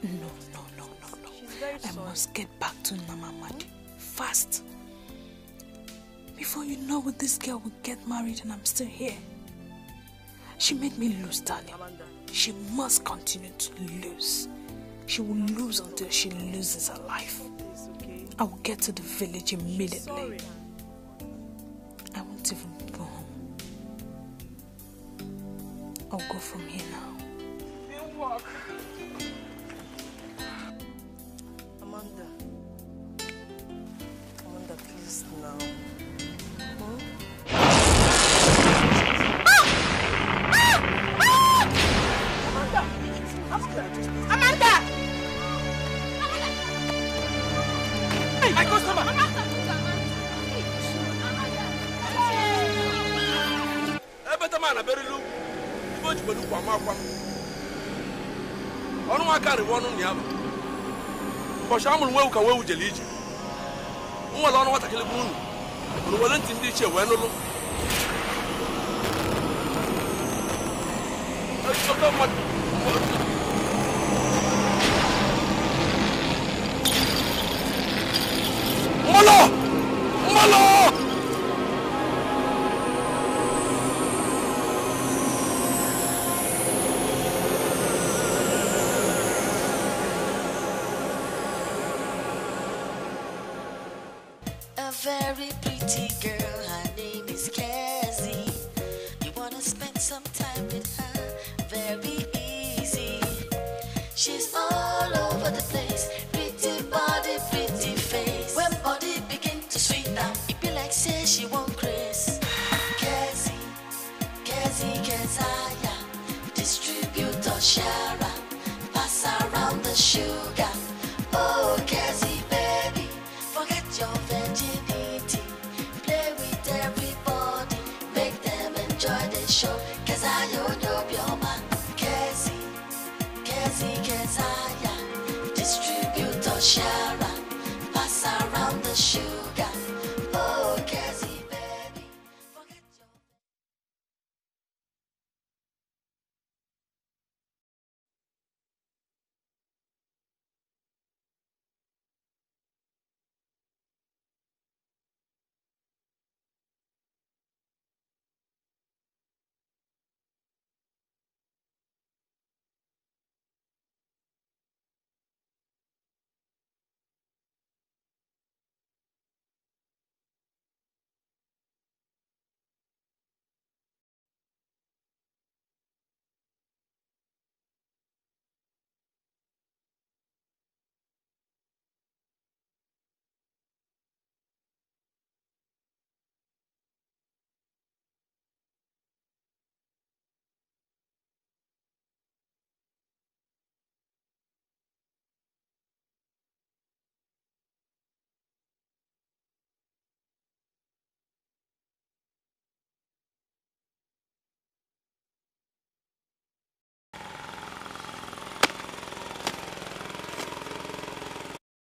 No, no, no, no, no. I sorry. must get back to Namamadi. Fast. Before you know it, this girl will get married and I'm still here. She made me lose, darling. Amanda. She must continue to lose. She will lose until she loses her life. I will get to the village immediately. I won't even go home. I'll go from here now. Amanda. Amanda, please now. karịwa ọnụ na ya bụ ụbọchị a mụrụ nwewu ka nwewu jere ije nwere ọnụ nwatakịrị bụ unu ụrụ were ntị ndị ichie wee nụlụ